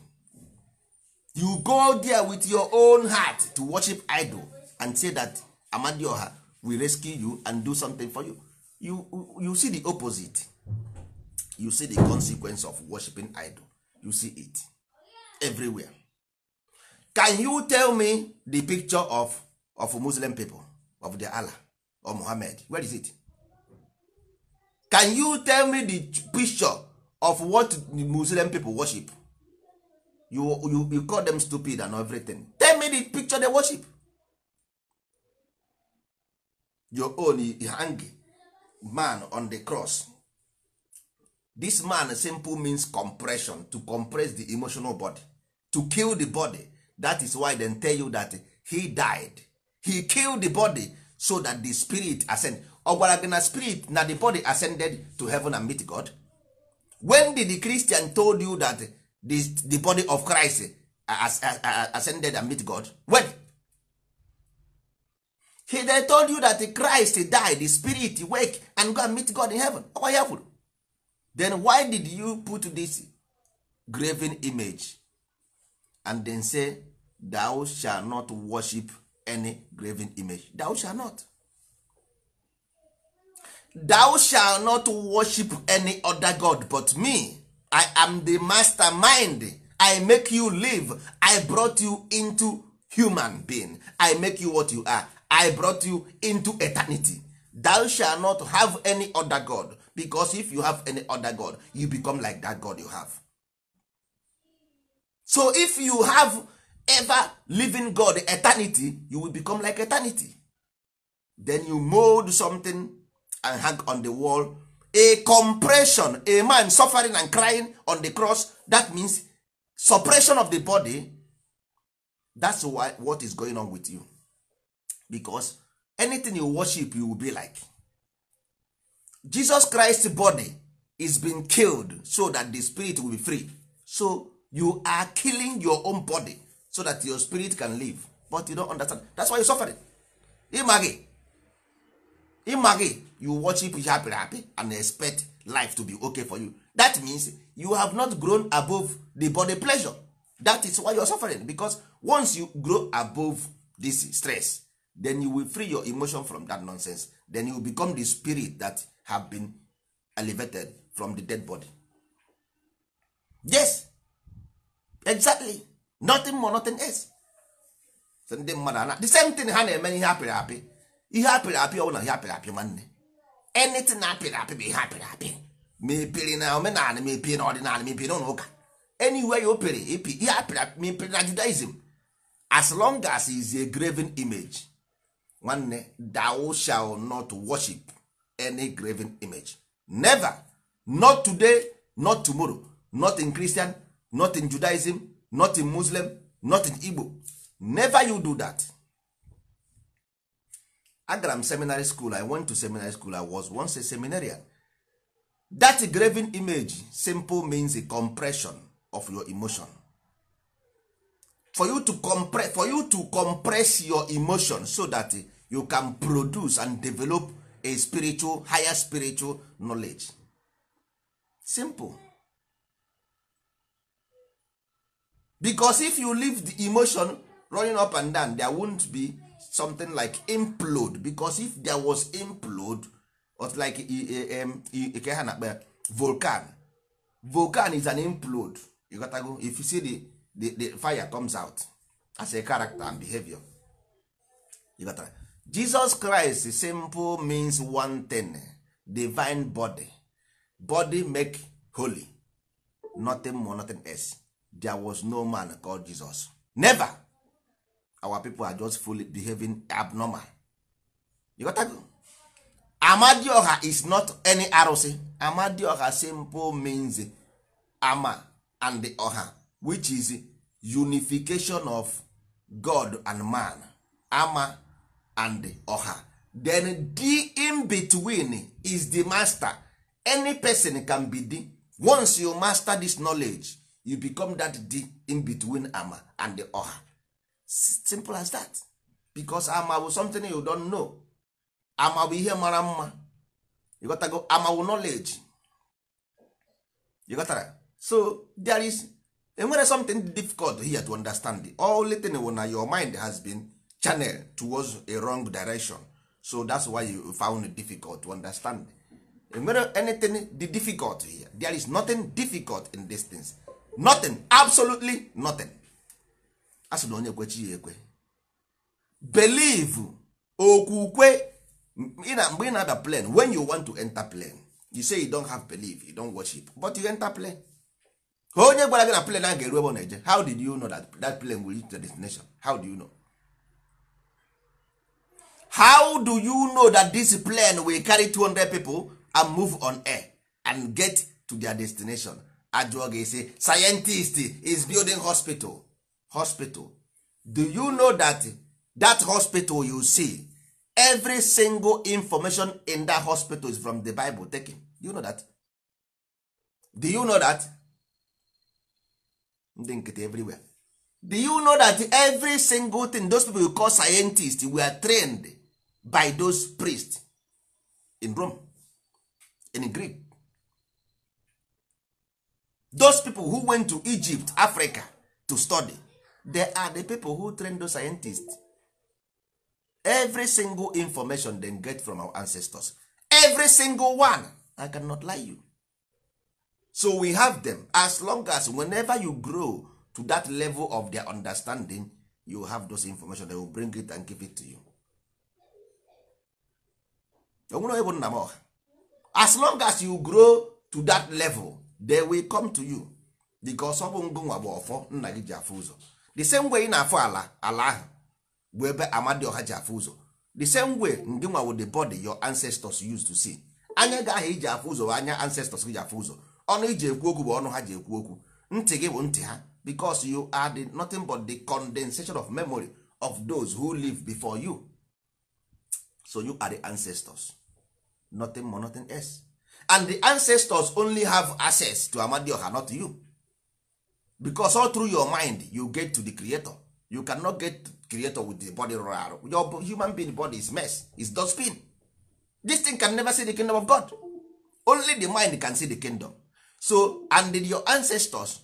you go there with your own heart to worship idol and say that amadioha we rescue you and do something for you you you see the opposite you see the consequence of worshiping idol you see it everywhere can you tell me the picture of of muslim people of the allah or Muhammad where is it can you tell me the picture of what the muslim people worship you, you you call them stupid and everything tell me the picture they worship your own hang man on the cross this man simple means compression to compress the emotional body to kill the body that is why they tell you that he died he killed the body so that the spirit ascend ọ gị na spirit na the body ascended to heaven and meet god when did the christian told you that the, the body of christ ascended and meet god when he they told you that Christ died the spirit wake and go and meet God in heaven ọkwa ya kwuru then why did you put this graven image and then say thou shall not worship any graven image thou shall not thou shall not worship any other god but me i am the mastermind i make you live i brought you into human being i make you what you are i brought you into eternity thou shall not have any other god because if you have any other god you become like that god you have so if you have ever living god eternity you will become like eternity then you mold something and hang on the wall a compression a man suffering and crying on the cross that means suppression of the body that's why what is going on with you because anything you worship you will be like jesus christ body is being killed so that the spirit will be free so you are killing your own body so that your spirit can live but you don't understand that's why you suffering ịma gị ịma you worship you happy happy and expect life to be okay for you that means you have not grown above the body pleasure that is why you are suffering because once you grow above this stress then you will free your emotion from that nonsense then you will become the spirit that have been elevated from the dead body yes exactly nothing more nothing else so ndị mmadụ ana the same thing ha na-eme ihe apịrị apị ihe apịrị apị na ihe apịrị apị nwanne anything apịrị apị bụ ihe apịrị apị ma epiri na omenala ma epiri na ọdịnala ma epiri na ụka anywhere you pere ihe apịrị apị ma epiri na judaism as long as is a graven image nwanne thou shall not worship any graven image never not today not tomorrow not in christian not in judaism not in muslim not in igbo never you do that agara m seminary school i went to seminary school i was once a seminarian that graven image simple means a compression of your emotion for you to compress for you to compress your emotion so that eh, you can produce and develop a spiritual higher spiritual knowledge simple because if you leave the emotion running up and down there won't be something like implode because if there was implode or like e, e, e, ke ha volcan volcan is an implode you gotta go if you see the the, the fire comes out as a character and behavior Jesus Christ simple means one thing divine body body make holy nothing more nothing else there was no man called Jesus never our people are just fully behaving abnormal you got to go. Amadioha is not any arụsị Amadioha simple means ama and the which is unification of god and man ama and oha then the in between is the master any person can be the once you master this knowledge you become that the in between ama and the oha simple as that because ama bụ something you don't know ama ihe mara mma ịghọtago ama amawu knowledge ịghọtara so there is enwere something difficult here to understand all thing wụ na your mind has been channeled towards a wrong direction so that's why you found it difficult to understand enwere anything the difficult here there is nothing difficult in these things nothing absolutely nothing a na onye kwechi ya ekwe believe okwukwe mgbe ị na when you want to enter plan you say you don't have belief you don't worship but you enter plan. onye gwara gị na plan a ga-eru ebe na-eje how did you know that that plane will reach the destination how do you know how do you know that this plane will carry 200 people and move on air and get to their destination ajụọ gị scientist is building hospital hospital do you know that that hospital you see every single information in that hospital is from the bible taken do you know that do you know that ndị nkịtị everywhere do you know that every single thing those people you call scientists were trained by those priests in Rome in Greek those people who went to Egypt Africa to study they are the people who train those scientists every single information they get from our ancestors every single one I cannot lie you so we have them as long as whenever you grow to that level of their understanding you have those information they will bring it and give it to you onwere bụ nna m ọha as long as you grow to that level they will come to you because ọ bụ ngụnwa bụ ọfọ nna gị ji afụ ụzọ the same way ị na ala ala ahụ bụ ebe amadioha ji afụ ụzọ the same way ngịnwa wo the body your ancestors used to see anya gị ahụ iji afụ ụzọ anya ancestors gị ji afụ ụzọ ọnụ iji ekwu okwu bụ ọnụ ha ji ekwu okwu ntị gị bụ ntị ha because you are the, nothing but the condensation of memory of those who live before you so you are the ancestors nothing more nothing else and the ancestors only have access to amadioha not you because all through your mind you get to the creator you cannot get creator with the body rụrụ arụ your human being body is mess is dustbin this thing can never see the kingdom of god only the mind can see the kingdom so and did your ancestors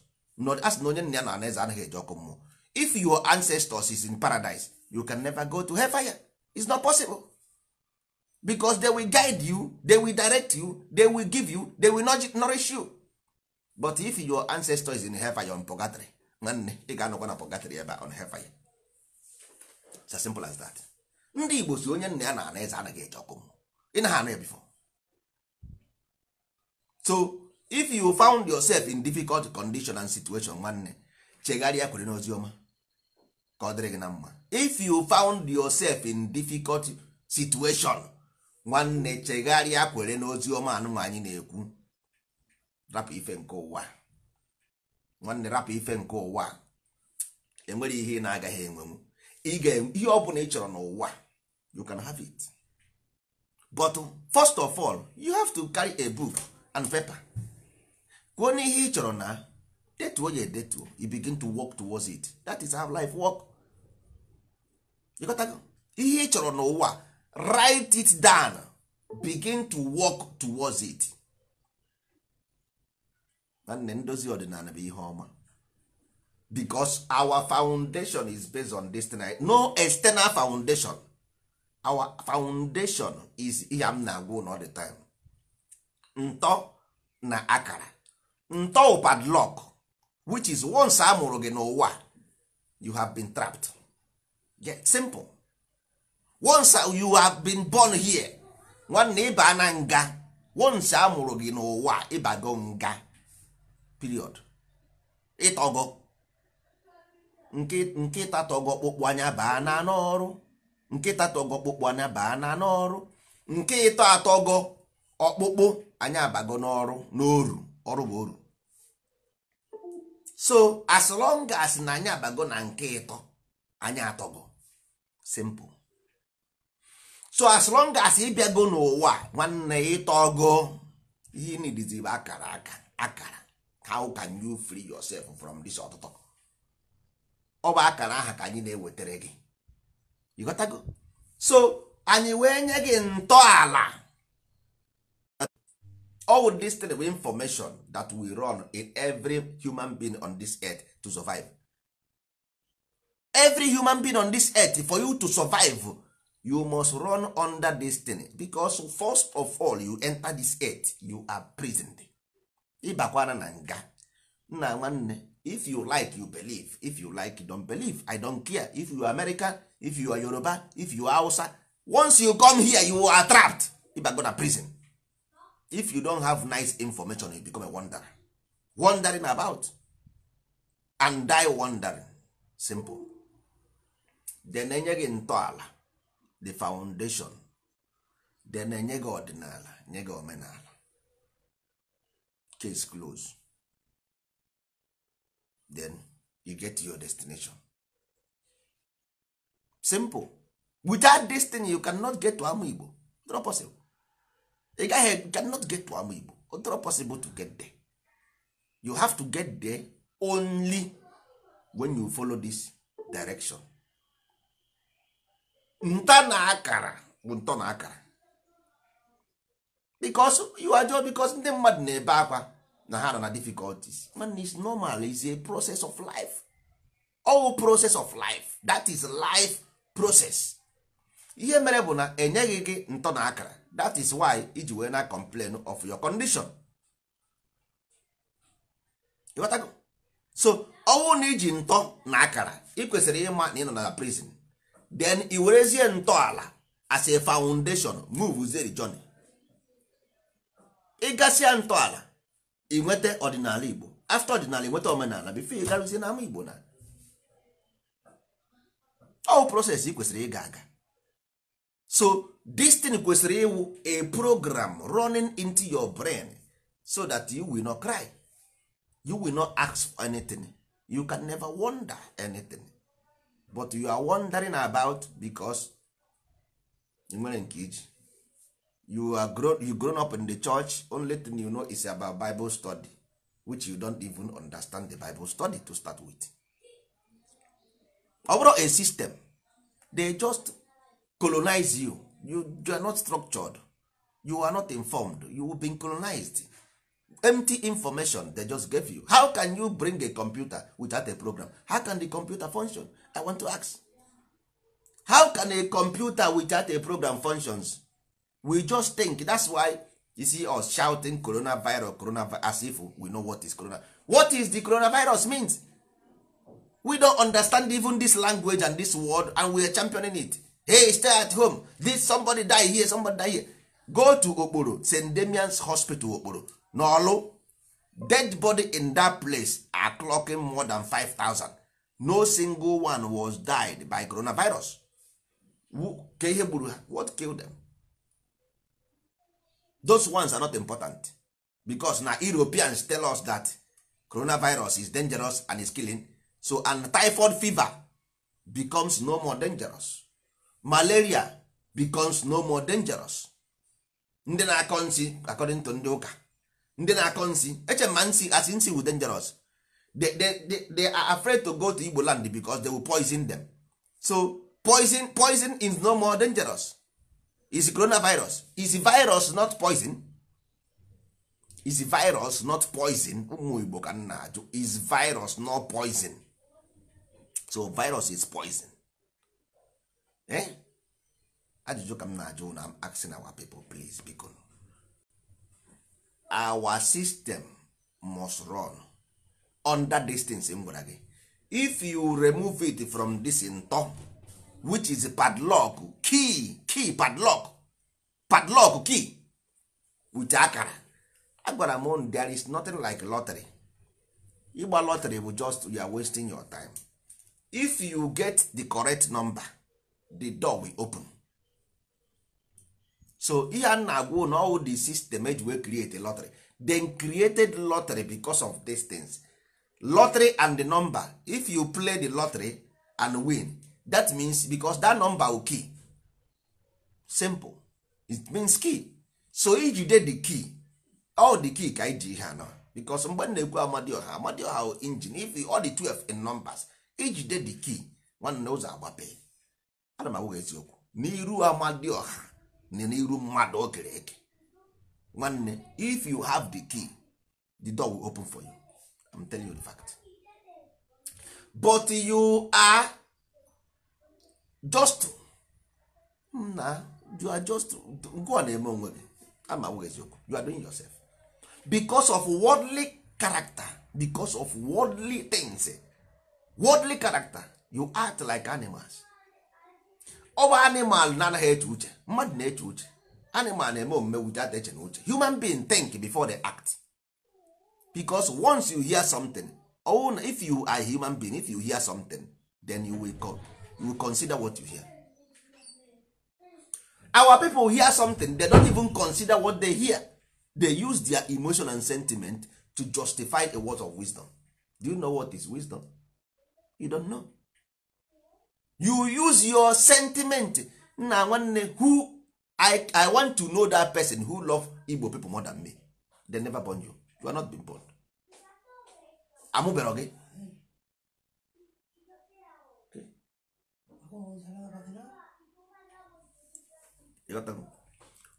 as na onye nna ya na anaeze anaghị eji ọkụ mmụọ if your ancestors is in paradise you can never go to hellfire it's not possible because they will guide you they will direct you they will give you they will nourish you but if your ancestors is in hellfire on purgatory nwanne ị ga-anọkwa na purgatory ebe on hellfire it's as simple as that ndị Igbo si onye nna ya na anaeze anaghị eji ọkụ mmụọ ị na ha ana ya before so if you found yourself in difficult condition and situation nwanne chegharịa kwere n'ozi ọma ka ọ dịrị gị na mma if you found yourself in difficult situation nwanne chegharịa kwere n'ozi ọma anụnwa anyị na-ekwu rapụ ife nke ụwa nwanne rapụ ife nke ụwa enwere ihe ị na-agaghị enwenwu ihe ọ bụla ị chọrọ n'ụwa you can have it but first of all you have to carry a book and paper kwuo n'ihe ị chọrọ na detuo ya edetuo you begin to work towards it that is how life work ihe ị chọrọ n'ụwa write it down begin to work towards it nwanne ndozi ọdịnala bụ ihe ọma because our foundation is based on this tonight. no external foundation our foundation is ihe m na-agwa all the time ntọ na akara ntọụ padlock which is once a mụrụ gị n'ụwa you have been trapped get simple once you have been born here nwanne ịba na nga once a mụrụ gị n'ụwa ịbago nga period ịtọgọ nkịta tọgọ kpụkpụ anya baa na n'ọrụ nkịta tọgọ kpụkpụ anya baa na n'ọrụ nke ịtọ atọgọ ọkpụkpụ anya abago n'ọrụ n'oru ọrụ bụ uru. so as long as na anyị abago na nke ịtọ anyị bụ simple so as long as ịbịago n'ụwa nwanne ọgụ ihe nidizibe akara aka akara how can you free yourself from this ọtụtụ ọ bụ akara aha ka anyị na-ewetara gị ịghọtago so anyị wee nye gị ntọala all this thing with information that we run in every human being on this earth to survive every human being on this earth for you to survive you must run under this thing because first of all you enter this earth you are prisoned ịbakwana na nga nna nwanne if you like you believe if you like you don't believe i don't care if you are american if you are yoruba if you are hausa once you come here you are trapped na prison if you don't have nice information you become a wanderer wandering about and die wandering simple den enye gị ntọala the foundation den enye gị ọdịnala nye gị omenala case close then you get your destination simple without this thing you cannot get to amụ igbo not possible ị gaghị e, cannot get to amụ igbo odoro possible to get there you have to get there only when you follow this direction nta na akara bụ ntọ na akara because you are just because ndị mmadụ na-ebe akwa na ha na difficulties man is normal is a process of life all process of life that is life process ihe mere bụ na enyeghị gị ntọ na akara that is why iji wee na complain of your condition watago so ọnwụ na iji ntọ na akara ị kwesịrị ịma na ị nọ na prison then i werezie ntọala as a foundation move zeri journey ịgasịa ntọala ị nweta ọdịnala igbo afta ọdịnala ị nweta omenala bifo ị garụzie n'ama igbo na ọwụ bụ proses ị kwesịrị ịga aga so this thing kwesịrị ịwụ a program running into your brain so that you will not cry you will not ask for anything you can never wonder anything but you are wondering about because nwere nke iji you are grown, you grown up in the church only thing you know is about bible study which you don't even understand the bible study to start with ọ bụrụ a system they just colonize you you, you are not structured you are not informed you will be colonized empty information they just gave you how can you bring a computer without a program how can the computer function i want to ask how can a computer without a program functions we just think that's why you see us shouting coronavirus coronavirus as if we know what is corona what is the coronavirus means we don't understand even this language and this word and we are championing it hey stay at home this somebody die here somebody die here go to okporo st damians hospital okporo N'olu dead body in that place are clocking more than 5000 no single one was died by coronavirus ka ihe what killed them those ones are not important because na europeans tell us that coronavirus is dangerous and is killing so and typhoid fever becomes no more dangerous malaria becomes no more dangerous ndị na-akọ nsị according to ndị ụka ndị na-akọ nsị eche ma nsị asị nsị wu dangerous they, they, they are afraid to go to Igbo land because they will poison them so poison poison is no more dangerous is coronavirus is virus not poison is virus not poison ụmụ ka ajụ is virus not poison so virus is poison Eh? ajụjụ ka m na-ajụ na asking our people please biko our system must run under distance m gwara gị if you remove it from this ntọ which is padlock key key padlock padlock key with akara agbara m there is nothing like lottery ịgba lottery bụ just you are wasting your time if you get the correct number the door will open so ihe a na-agwa na all the system eji wee create a lottery then created lottery because of these things lottery and the number if you play the lottery and win that means because that number will key simple it means key so ijide the key all the key ka iji ihe anọ because mgbe na-ekwu amadioha amadioha engine if all the 12 in numbers ijide the key nwanne ụzọ agbape ana m eziokwu n'iru ọha na n'iru mmadụ okere eke nwanne if you have the key the door will open for you I'm telling you the fact but you are just na you are just go on eme onwe gị ama eziokwu you are doing yourself because of worldly character because of worldly things worldly character you act like animals Over animal na-anaghị eche uche mmadụ na-eche uche animal na-eme omume without eche na uche human being think before they act because once you hear something ọwụ na if you are human being if you hear something then you will, call you will consider what you hear our people hear something they don't even consider what they hear they use their emotion and sentiment to justify a word of wisdom do you know what is wisdom you don't know you use your sentiment nna nwanne who I, i want to know that person who love igbo people more than me they never born you you are not been born amụbere gị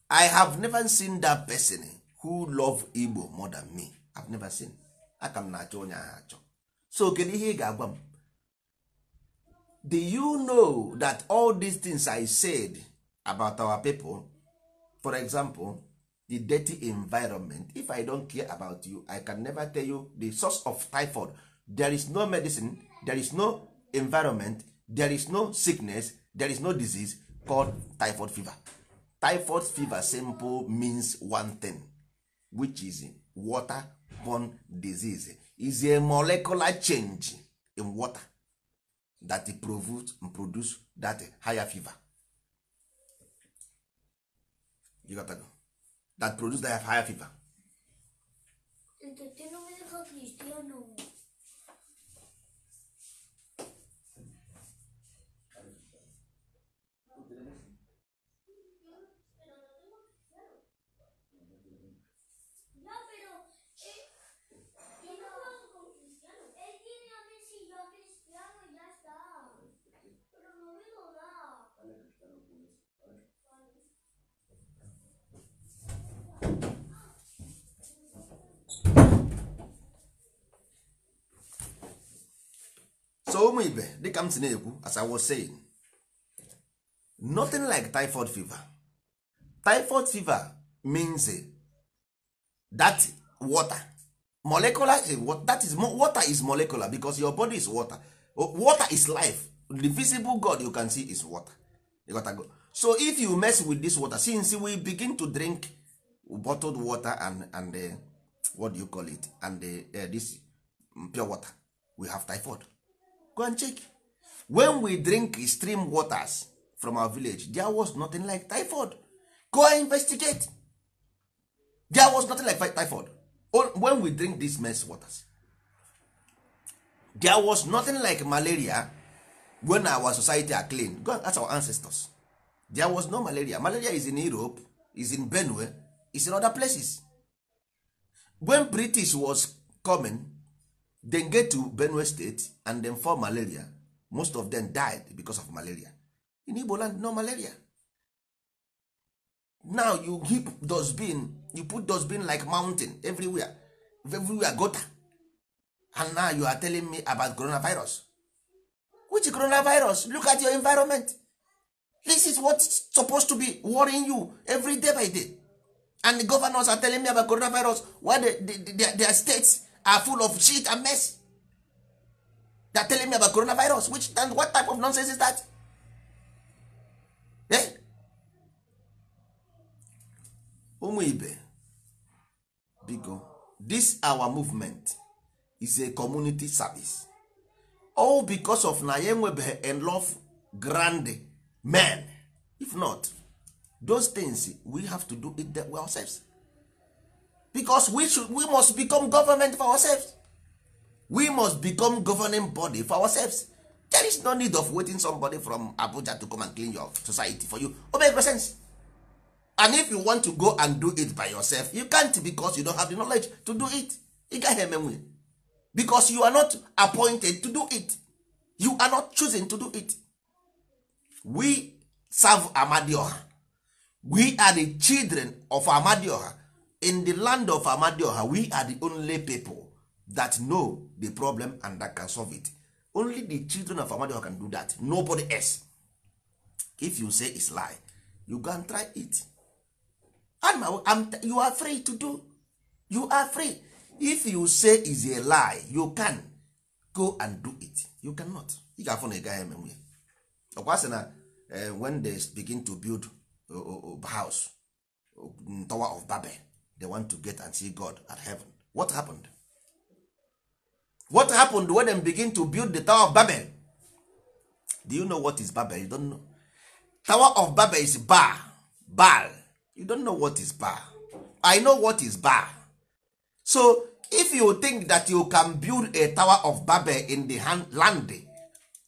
i have never seen that person who love igbo more than me i've never seen aka m na-achọ onye ahụ achọ so kedu ihe ị ga-agwa m do you know that all these things i said about our people for example the dirty environment if i don't care about you i can never tell you the source of typhoid there is no medicine there is no environment there is no sickness there is no disease called typhoid fever typhoid fever simple means one thing which is waterborne disease is a molecular change in water that produce that higher fever you got to that produce that higher fever so ụmụ ibe dịka m si na-ekwu as I was saying nothing like typhoid fever typhoid fever means eh, that water molecular eh, that is water is molecular because your body is water water is life the visible god you can see is water so if you mess with this water since we begin to drink bottled water and and uh, what do you call it and uh, uh, this pure water we have typhoid go and check when we drink stream waters from our village there was nothing like typhoid go and investigate there was nothing like typhoid when we drink these mess waters there was nothing like malaria when our society are clean go and ask our ancestors there was no malaria malaria is in europe is in benue is in other places when british was coming then get to benue state and then fall malaria most of them died because of malaria in igbo land no malaria now you keep dustbin you put dustbin like mountain everywhere everywhere gota and now you are telling me about coronavirus which coronavirus look at your environment this is what supposed to be worrying you every day by day and the governors are telling me about coronavirus why the, the, the, their states are full of shit and mess they are telling me about coronavirus which and what type of nonsense is that eh? ụmụ ibe biko this our movement is a community service all because of na ya enwebeghị enough grand men if not those things we have to do it ourselves because we, we must become government for ourselves we must become governing body for ourselves there is no need of waiting somebody from abuja to come and clean your society for you o make sense and if you want to go and do it by yourself you can't because you don't have the knowledge to do it ị gaghị emenwe because you are not appointed to do it you are not choosing to do it we serve amadioha we are the children of amadioha in the land of amadioha we are the only people that know the problem and that can solve it only the children of amadioha can do that nobody else if you say it's lie you go and try it I'm, I'm, you are free to do you are free if you say is a lie you can go and do it you cannot ị ga-afụ na ị eme nwunye ọkwa sị na eh, when they begin to build a oh, oh, oh, house tower of babel they want to get and see god at heaven what happened what happened when they begin to build the tower of babel do you know what is babel you don't know tower of babel is bar bal you don't know what is bar i know what is bar so if you think that you can build a tower of babel in the hand, land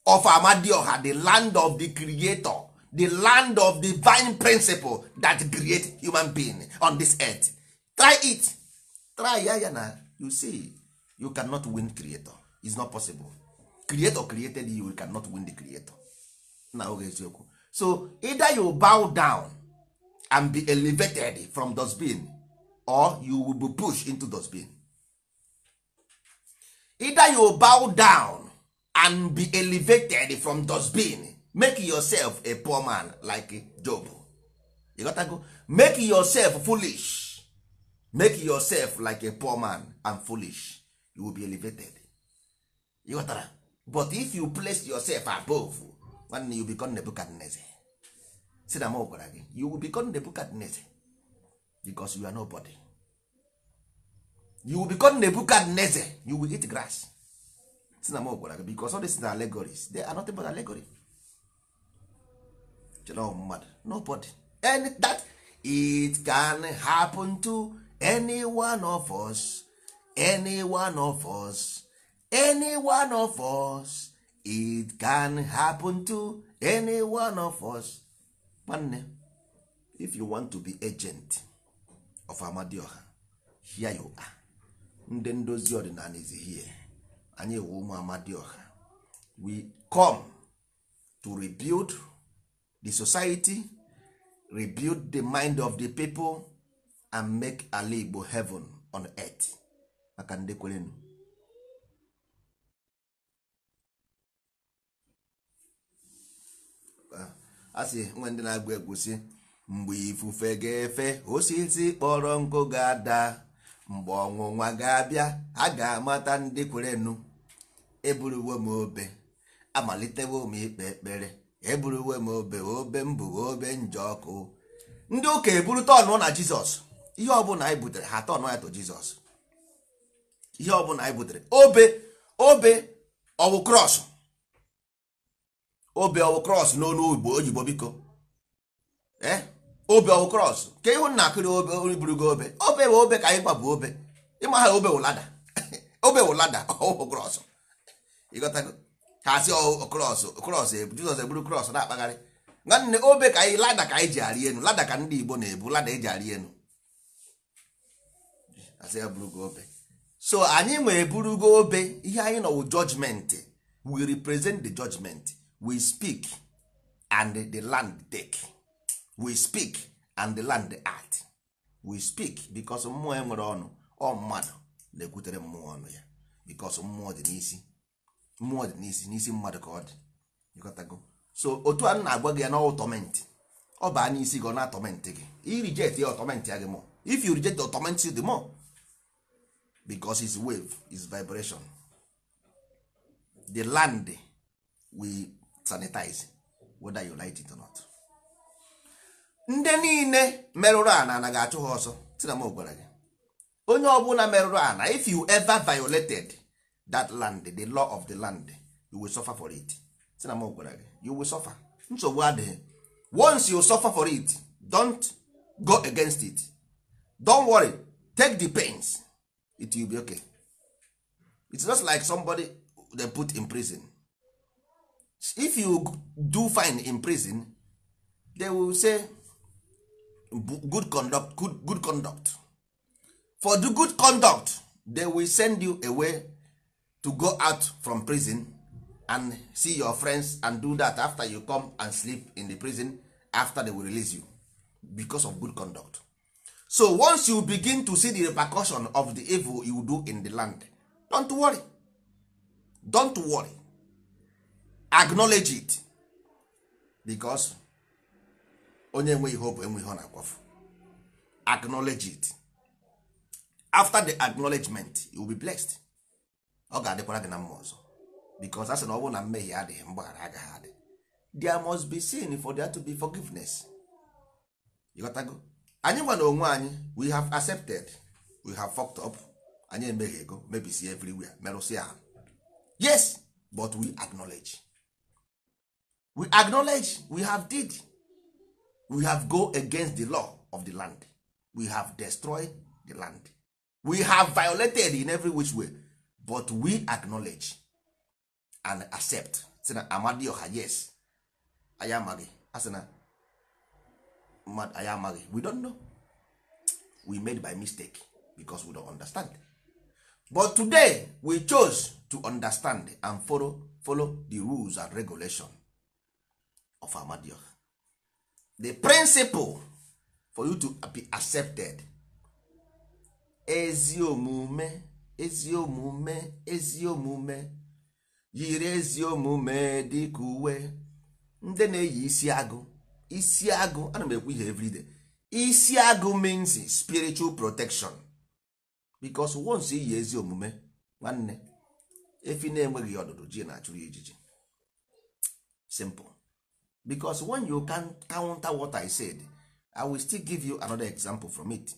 of amadioha the land of the creator the land of divine principle that create human being on this earth try it try ya ya na you see you cannot win creator is not possible creator created you, you cannot win the creator na oge eziokwu so either you bow down and be elevated from dustbin or you will be pushed into dustbin either you bow down and be elevated from dustbin make yourself a poor man like job you gotta go make yourself foolish make yourself like a poor man and foolish you will be elevated you ghọtara but if you place yourself above nwanne you become Nebuchadnezzar si na m gwara gị you will become Nebuchadnezzar because you are nobody you will become Nebuchadnezzar you will eat grass si na m gwara gị because all these na allegories they are nothing but allegory chere mmadụ nobody any that it can happen to any of us any of us any of us it can happen to anyone of us nwanne if you want to be agent of amadioha here you are ndị ndozi ọdịnala is here anyị wụ ụmụ amadioha we come to rebuild the society rebuild the mind of the people and make ala igbo heaven on earth maka ndị a sị nwa ndị na-agba egwu si mgbe ifufe ga-efe osisi kpọrọ nkụ ga-ada mgbe ọnwụnwa ga-abịa a ga-amata ndị kwerenu eburuwe m obe amalitewo m ikpe ekpere eburuwe m obe obe mbụ obe njọ ọkụ ndị ụka eburu ọnụ na jizọs ihe ọbụla anyị butere ha atọ ọnụ ya to jizọs ihe ọbụla anyị butere obe obe ọwụ krọs obe ọwụ krọs n'olu oyibo biko ee obe ọwụ krọs ka ịhụ na akụrị obe oriburugo obe obe bụ obe ka anyị bụ obe ịma obe wụlada obe wụlada ọwụ krọs ịghọtago ha si krọs krọs e, jizọs eburu krọs na-akpagharị nwanne obe ka anyị lada ka anyị ji arị elu lada ka ndị igbo na-ebu lada eji arị elu asị ya bụrụ gị obe so anyị ma eburugo obe ihe anyị nọwụ wụ judgment we represent the judgment we speak and the land take we speak and the land act we speak bikos mmụọ e nwere ọnụ ọ mmadụ na-ekwutere mmụọ ọnụ ya bikos mmụọ dị n'isi mmụọ dị n'isi n'isi mmadụ ka ọ dị ịkọtago so otu a na-agwa gị ya na ọtọment ọ baa n'isi gị ọ na-atọment gị irijet ya ọtọment ya gị mọ if you reject the ọtọment the mụọ. because his wave is vibration the land we sanitize whether you like it or not ndị niile merụrụ ana ana ga-achụ ha ọsọ tina m gwara gị onye ọbụla merụrụ ana if you ever violated that land the law of the land you will suffer for it tina m gwara gị you will suffer nsogbu adịghị once you suffer for it don't go against it don't worry take the pains it will be okay it's just like somebody they put in prison if you do fine in prison they will say good conduct good, good conduct for the good conduct they will send you away to go out from prison and see your friends and do that after you come and sleep in the prison after they will release you because of good conduct so once you begin to see the repercussion of the evil you do in the land don't worry don't worry acknowledge it because onye enweghị hope enweghị na-akwafu acknowledge it after the acknowledgement you will be blessed ọ ga-adịkwara gị na mma ọzọ because asị na ọ bụrụ na mmehie adịghị mgbaghara agaghị adị there must be sin for there to be forgiveness you got go? anyị gwa onwe anyị we have accepted we have fucked up anyị emeghị ego mebisi everywhere merụsịa ha yes but we acknowledge we acknowledge we have did we have go against the law of the land we have destroyed the land we have violated in every which way but we acknowledge and accept sị na amadioha yes anyị amaghị asị na mmadụ anyị amaghị we don't know we made by mistake because we don't understand but today we chose to understand and follow, follow the rules and regulation of amadio the principle for you to be accepted ezi omume ezi omume ezi omume yiri ezi omume dịka uwe ndị na-eyi isi agụ isi agụ ana m ekwu ihe everyday isi agụ means spiritual protection because once iyi ezi omume nwanne efi na-enweghị ọdụdụ ji na-achụrụ ejiji. simple because when you can counter what I said I will still give you another example from it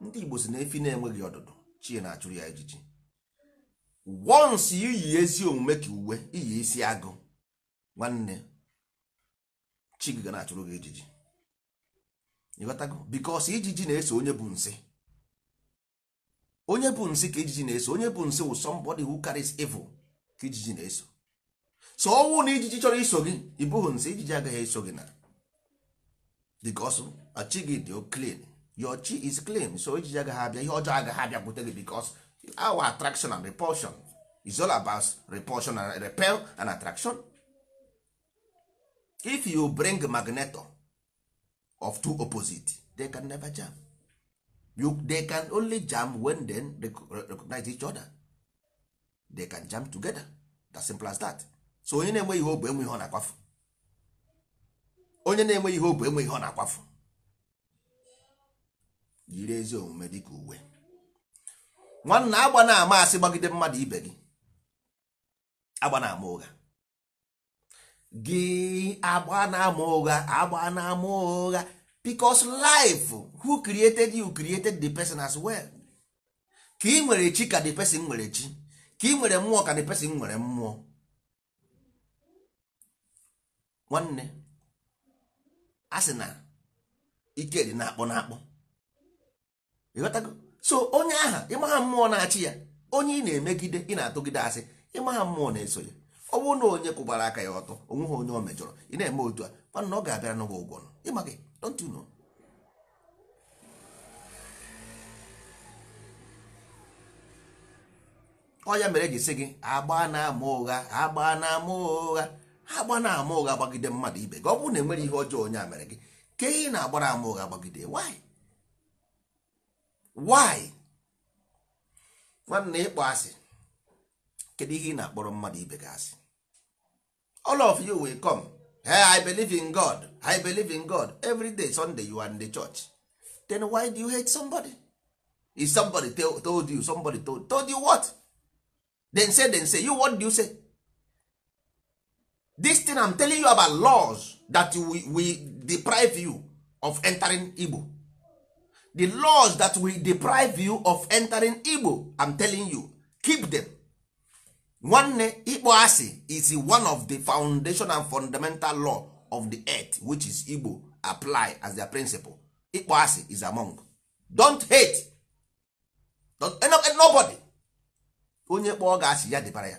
ndị Igbo si na efi na-enweghị ọdụdụ chi na-achụrụ ya ejiji once iyi ezi omume ka uwe iyi isi agụ nwanne chi gị ga na-achụrụ gị ejiji ịghọtago bikos ijiji na-eso onye bụ nsị onye bụ nsị ka ijiji na-eso onye bụ nsị wụ somebody who carries evil ka ijiji na-eso so ọnwụ na ijiji chọrọ iso gị ịbụghị nsị ijiji agaghị eso gị na bikos chi gị dị clean your chi is clean so ijiji agaghị abịa ihe ọjọọ agaghị abịa bute gị bikos our attraction and repulsion is all about repulsion and repel and attraction if you bring magnet of two opposite they can never jam you, they can only jam when they recognize each other they can jam together as simple as that so onye na-enwe ihe ogbe enwe ihe ọ na-akwafu onye na-enwe ihe ogbe enwe ihe ọ na-akwafu yiri ezi omume dịka uwe nwanna agba na-ama asị gbagide mmadụ ibe gị agba na-ama ụgha gị agba na-ama ụgha agba na-ama ụgha because life hụ created you created the person as well ka ị nwere chi ka the person nwere chi ka ị nwere mmụọ ka the person nwere mmụọ nwanne a sị na ike dị na-akpọ na-akpọ ịghọtago so onye aha ịmagha mmụọ na-achị ya onye ị na-emegide ị na-atụgide asị ịmagha mmụọ na-eso ya ọ bụrụ na onye kwụbara aka ya ọtọ ha onye o mejọrọ ị na-eme otu a mana ọ ga-abịara n'ụgwọ ụgwọ ịma gị don't you know ọ ya mere e ji sị gị agba na-ama ụgha agba na-ama ụgha agba na-ama ụgha gbagide mmadụ ibe gị ọ bụrụ na enwere ihe ọjọọ onye a mere gị ka ihe na-agbara ama ụgha gbagide why why nwanne ịkpọ asị kedu ihe ị na-akpọrọ mmadụ ibe gị asị all of you will come hey, i believe in god i believe in god every day sunday you are in the church then why do you hate somebody if somebody tell, told you somebody told, told you what then say then say you what do you say this thing i'm telling you about laws that we, we deprive you of entering igbo the laws that will deprive you of entering igbo i'm telling you keep them nwanne ikpo asị is one of the foundation and fundamental law of the earth which is Igbo apply as their principle ịkpọ asị is among don't hate don't, eh, eh, nobody onye kpọọ ga asị ya dịbara ya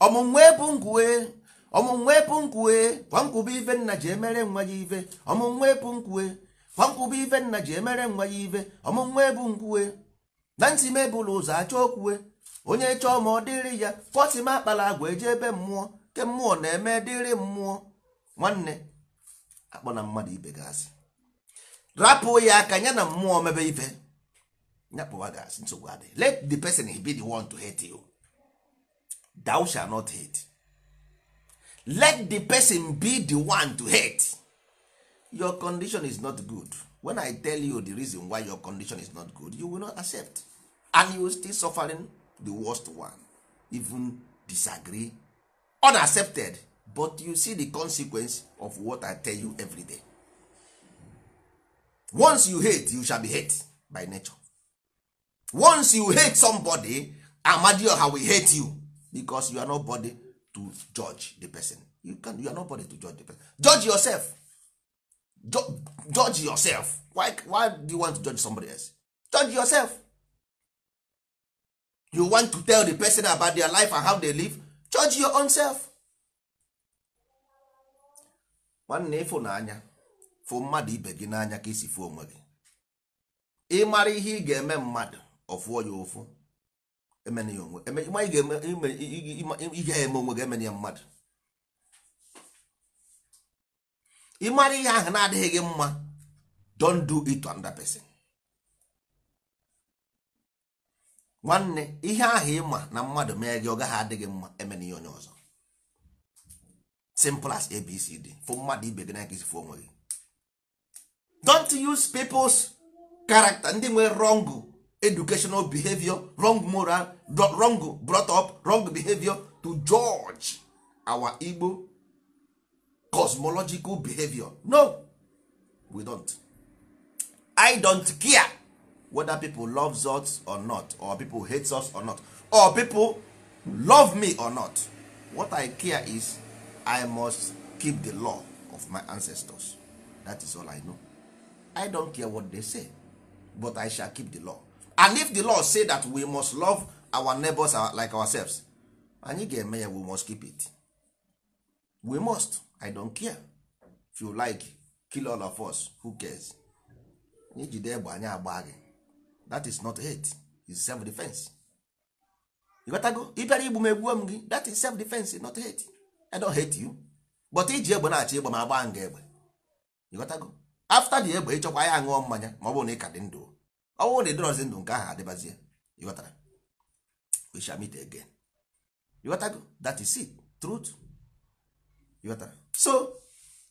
ọmụnwe bụ nkwue ọmụnwe bụ nkwue kwa ife nna ji emere nwa ya ive ọmụnwe bụ nkwue kwa nkwube ife nna ji emere nwa ya ive ọmụnwe bụ nkwue na ntị mebụlụ ụzọ achọ okwue onye chọọ ma ọ dịrị ya m akpala agwa eji ebe mmụọ ke mmụọ na-eme dịrị mmụọ nwanne akpọ na mmadụ ibe gasị rapụ ya aka ya na mmụọ mebe ife nyakpụwa gasị nsogbu adị let the person be the one to hate you thou shall not hate let the person be the one to hate your condition is not good when i tell you the reason why your condition is not good you will not accept and you will still suffering the worst one even disagree unaccepted but you see the consequence of what i tell you every day once you hate you shall be hate by nature once you hate somebody amadio how will hate you because you are nobody to judge the person you can you are nobody to judge the person judge yourself judge, judge yourself why why do you want to judge somebody else judge yourself you want to tell the person about their life and how they live judge your own self nwanne n'anya fụ mmadụ ibe gị n'anya ka isi fụ onwe gị ịmara ihe ị ga-eme mmadụ ọfụọ ya ụfụ emene ya onwe ihe eme onwe gị mmadu. ya mmadụ ịmara ihe ahụ na-adịghị gị mma don't do it to another person nwanne ihe ahụ ịma na mmadụ mee gị ọgaghị gaghị adịghị mma emena ihe onye ọzọ simple as abcd fụ mmadụ ibe gị n'aka isifu onwe don't use people's character ndị nwee wrong educational behavior wrong moral wrong brought up wrong behavior to judge our Igbo cosmological behavior no we don't i don't care whether people love us or not or people hate us or not or people love me or not what i care is i must keep the law of my ancestors that is all i know i don't care what they say but i shall keep the law and if the law say that we must love our neighbors uh, like ourselves anyị ga-eme ya we must keep it we must i don't care if you like kill all of us who cares anyị jide egbe anyị agba gị that is not hate is self defense ịgotago ịbịara igbu m egbuo m gị that is self defense not hate i don't hate you but iji egbe na-achọ ịgba m agba nga egbe ịgotago after the egbe ịchọkwa ya ṅụọ mmanya ma ọ bụrụ na ị ka dị ndụ ọ bụrụ na ịdọrọzi ndụ nke ahụ adịbazie ịghọtara we shall meet again ịghọtago that is it truth ịghọtara so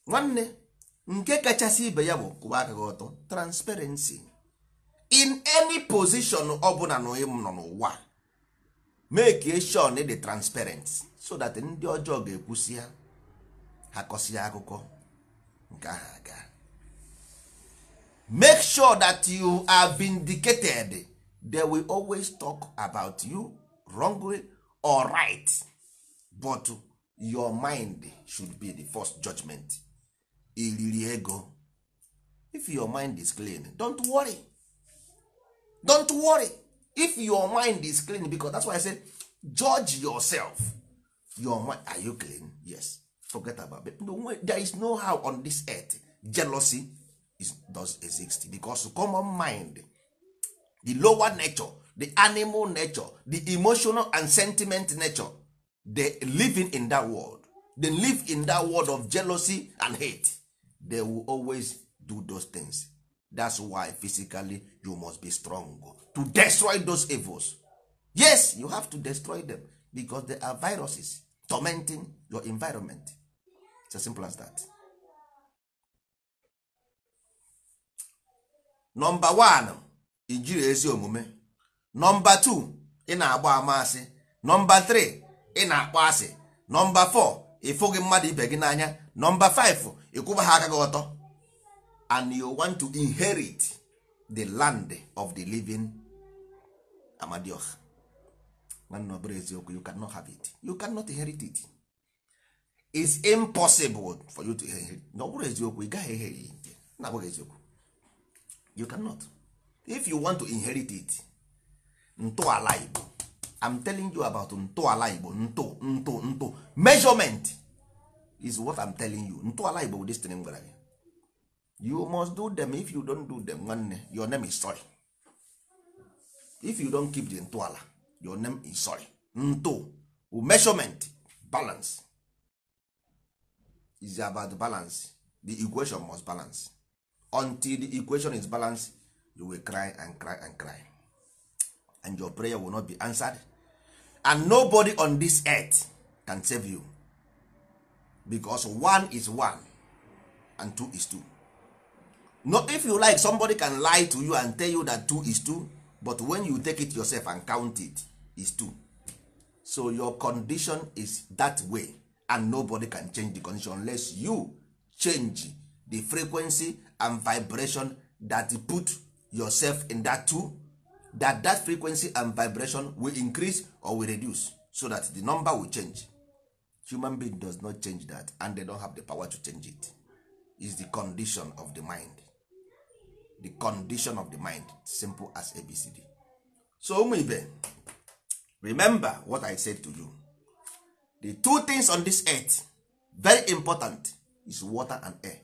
nwanne nke kachasị ibe ya bụ kwụwa aka gị ọtọ transparency in any position ọbụla na onye nọ n'ụwa make sure na dị transparent so that ndị ọjọọ ga-ekwusi ya ha akụkọ nke aga make sure that you are vindicated they will always talk about you wrongly or right but your mind should be the first judgment iriri ego if your mind is clean don't worry don't worry if your mind is clean because that's why i say judge yourself your mind are you clean yes forget about it no, there is no how on this earth jealousy is, does exist because common mind the lower nature the animal nature the emotional and sentiment nature they living in that world they live in that world of jealousy and hate they will always do those things that's why physically you must be strong to destroy those evils yes you have to destroy them because they are viruses tormenting your environment it's as simple as that Nọmba one ijiri ezi omume nọmba two ị na-agba amasị nọmba three ị na-akpọ asị nọmba four ịfụghị mmadụ ibe gị n'anya nọmba five ịkwụba ha aka gị ọtọ and you want to inherit the land of the living Amadioh. nwanne ọ eziokwu you cannot have it you cannot inherit it is impossible for you to inherit na ọ eziokwu ị gaghị ihe na abụghị eziokwu you cannot if you want to inherit it ntọala igbo I'm telling you about ntọala igbo nto nto nto measurement is what I'm telling you ntọala igbo this thing m gwara gị you must do them if you don't do them nwanne your name is sorry if you don't keep the ntọala your name is sorry nto measurement balance is about balance the equation must balance until the equation is balanced you will cry and cry and cry and your prayer will not be answered and nobody on this earth can save you because one is one and two is two no if you like somebody can lie to you and tell you that 2 is 2 but when you take it yourself and count it is 2 so your condition is that way and nobody can change the condition unless you change the frequency and vibration that put yourself in that two that that frequency and vibration will increase or will reduce so that the number will change human being does not change that and they don't have the power to change it is the condition of the mind the condition of the mind simple as abcd so ụmụ ibe remember what i said to you the two things on this earth very important is water and air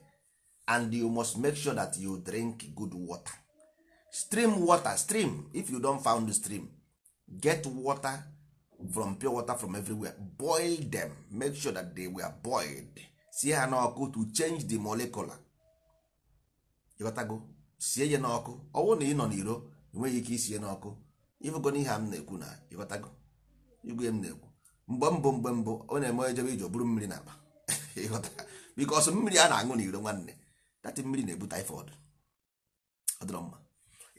and you must make sure that you drink good water stream water stream if you don found the stream get water from pure water from everywhere boil them make sure that they were boiled see ha na ọkụ to change the molecular you gotta go sie ya n'ọkụ ọwụ na ị nọ n'iro enweghị ike isie n'ọkụ ịfụgona ihe a m na-ekwu na ịghọtago igwe m na-ekwu mgbe mbụ mgbe mbụ ọ na-eme ejebe ije buru mmiri na akpa ịghọta bikọs mmiri a na-aṅụ n'iro nwanne dati mmiri na-ebu typhoid adịrọ mma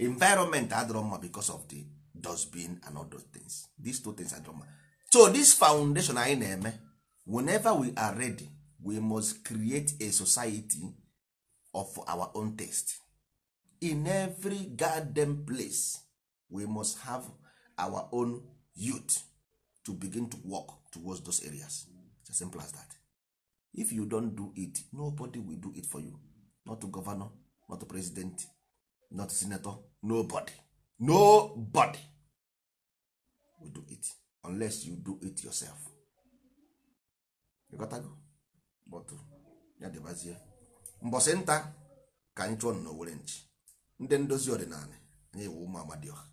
environment adịrọ mma because of the dustbin and other things these two things adịrọ mma so this foundation anyị na-eme whenever we are ready we must create a society of our own taste in every garden place we must have our own youth to begin to work towards those areas it's as simple as that if you don do it nobody will do it for you not to governor not to president not to senator nobody nobody will do it unless you do it yourself you got but nta ka anyị chụọ nchi ndị ndozi ọdịnala anyị wụ ụmụ amadioha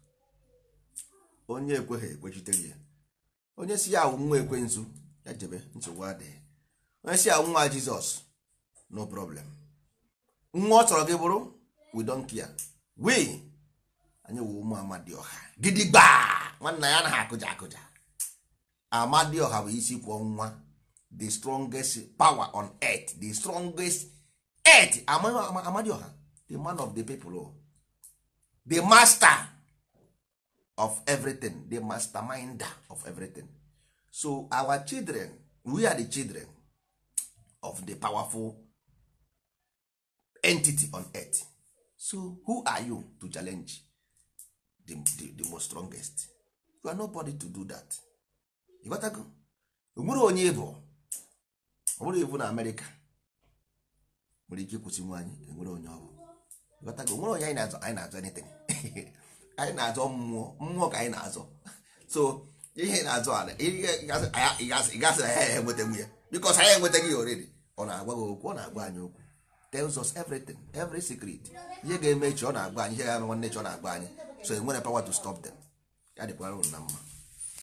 onye ekweghị ekwechitere ya onye si ya awụ nwa ekwensu ya jebe nsogbu adịghị onye si awụ nwa jizọs no problem nwa ọ chọrọ gị bụrụ we don't care we anyị wụ ụmụ amadioha gidigba nwanna ya anaghị akụja akụja amadioha bụ isi kwọ nwa the strongest power on earth the strongest earth amadioha the man of the people oh. the master of everything the masterminder of everything so our children we are the children of the powerful entity on earth so who are you to challenge the, the, the most strongest you are nobody to do that E nwere onye bụ ọ bụrụ ibu na amerịka nwere ike ịkwụsị nwaanyị enwere onye ọ ghọtago nwere onye anyị na-azọ anyị na-azọ anything anyị na-azọ mmụọ mmụọ ka anyị na-azọ so ihe na-azọ ala ị gasị na ya ya enwetenwu ya bikos anyị enwetaghị ya oredi ọ na-agwa gị okwu ọ na-agwa anyị okwu tells us everything every secret ihe ga-eme echi ọ na-agwa anyị ihe ga-eme nwanne echi ọ na-agwa anyị so enwere power to stop them ya dịkwara unu na mma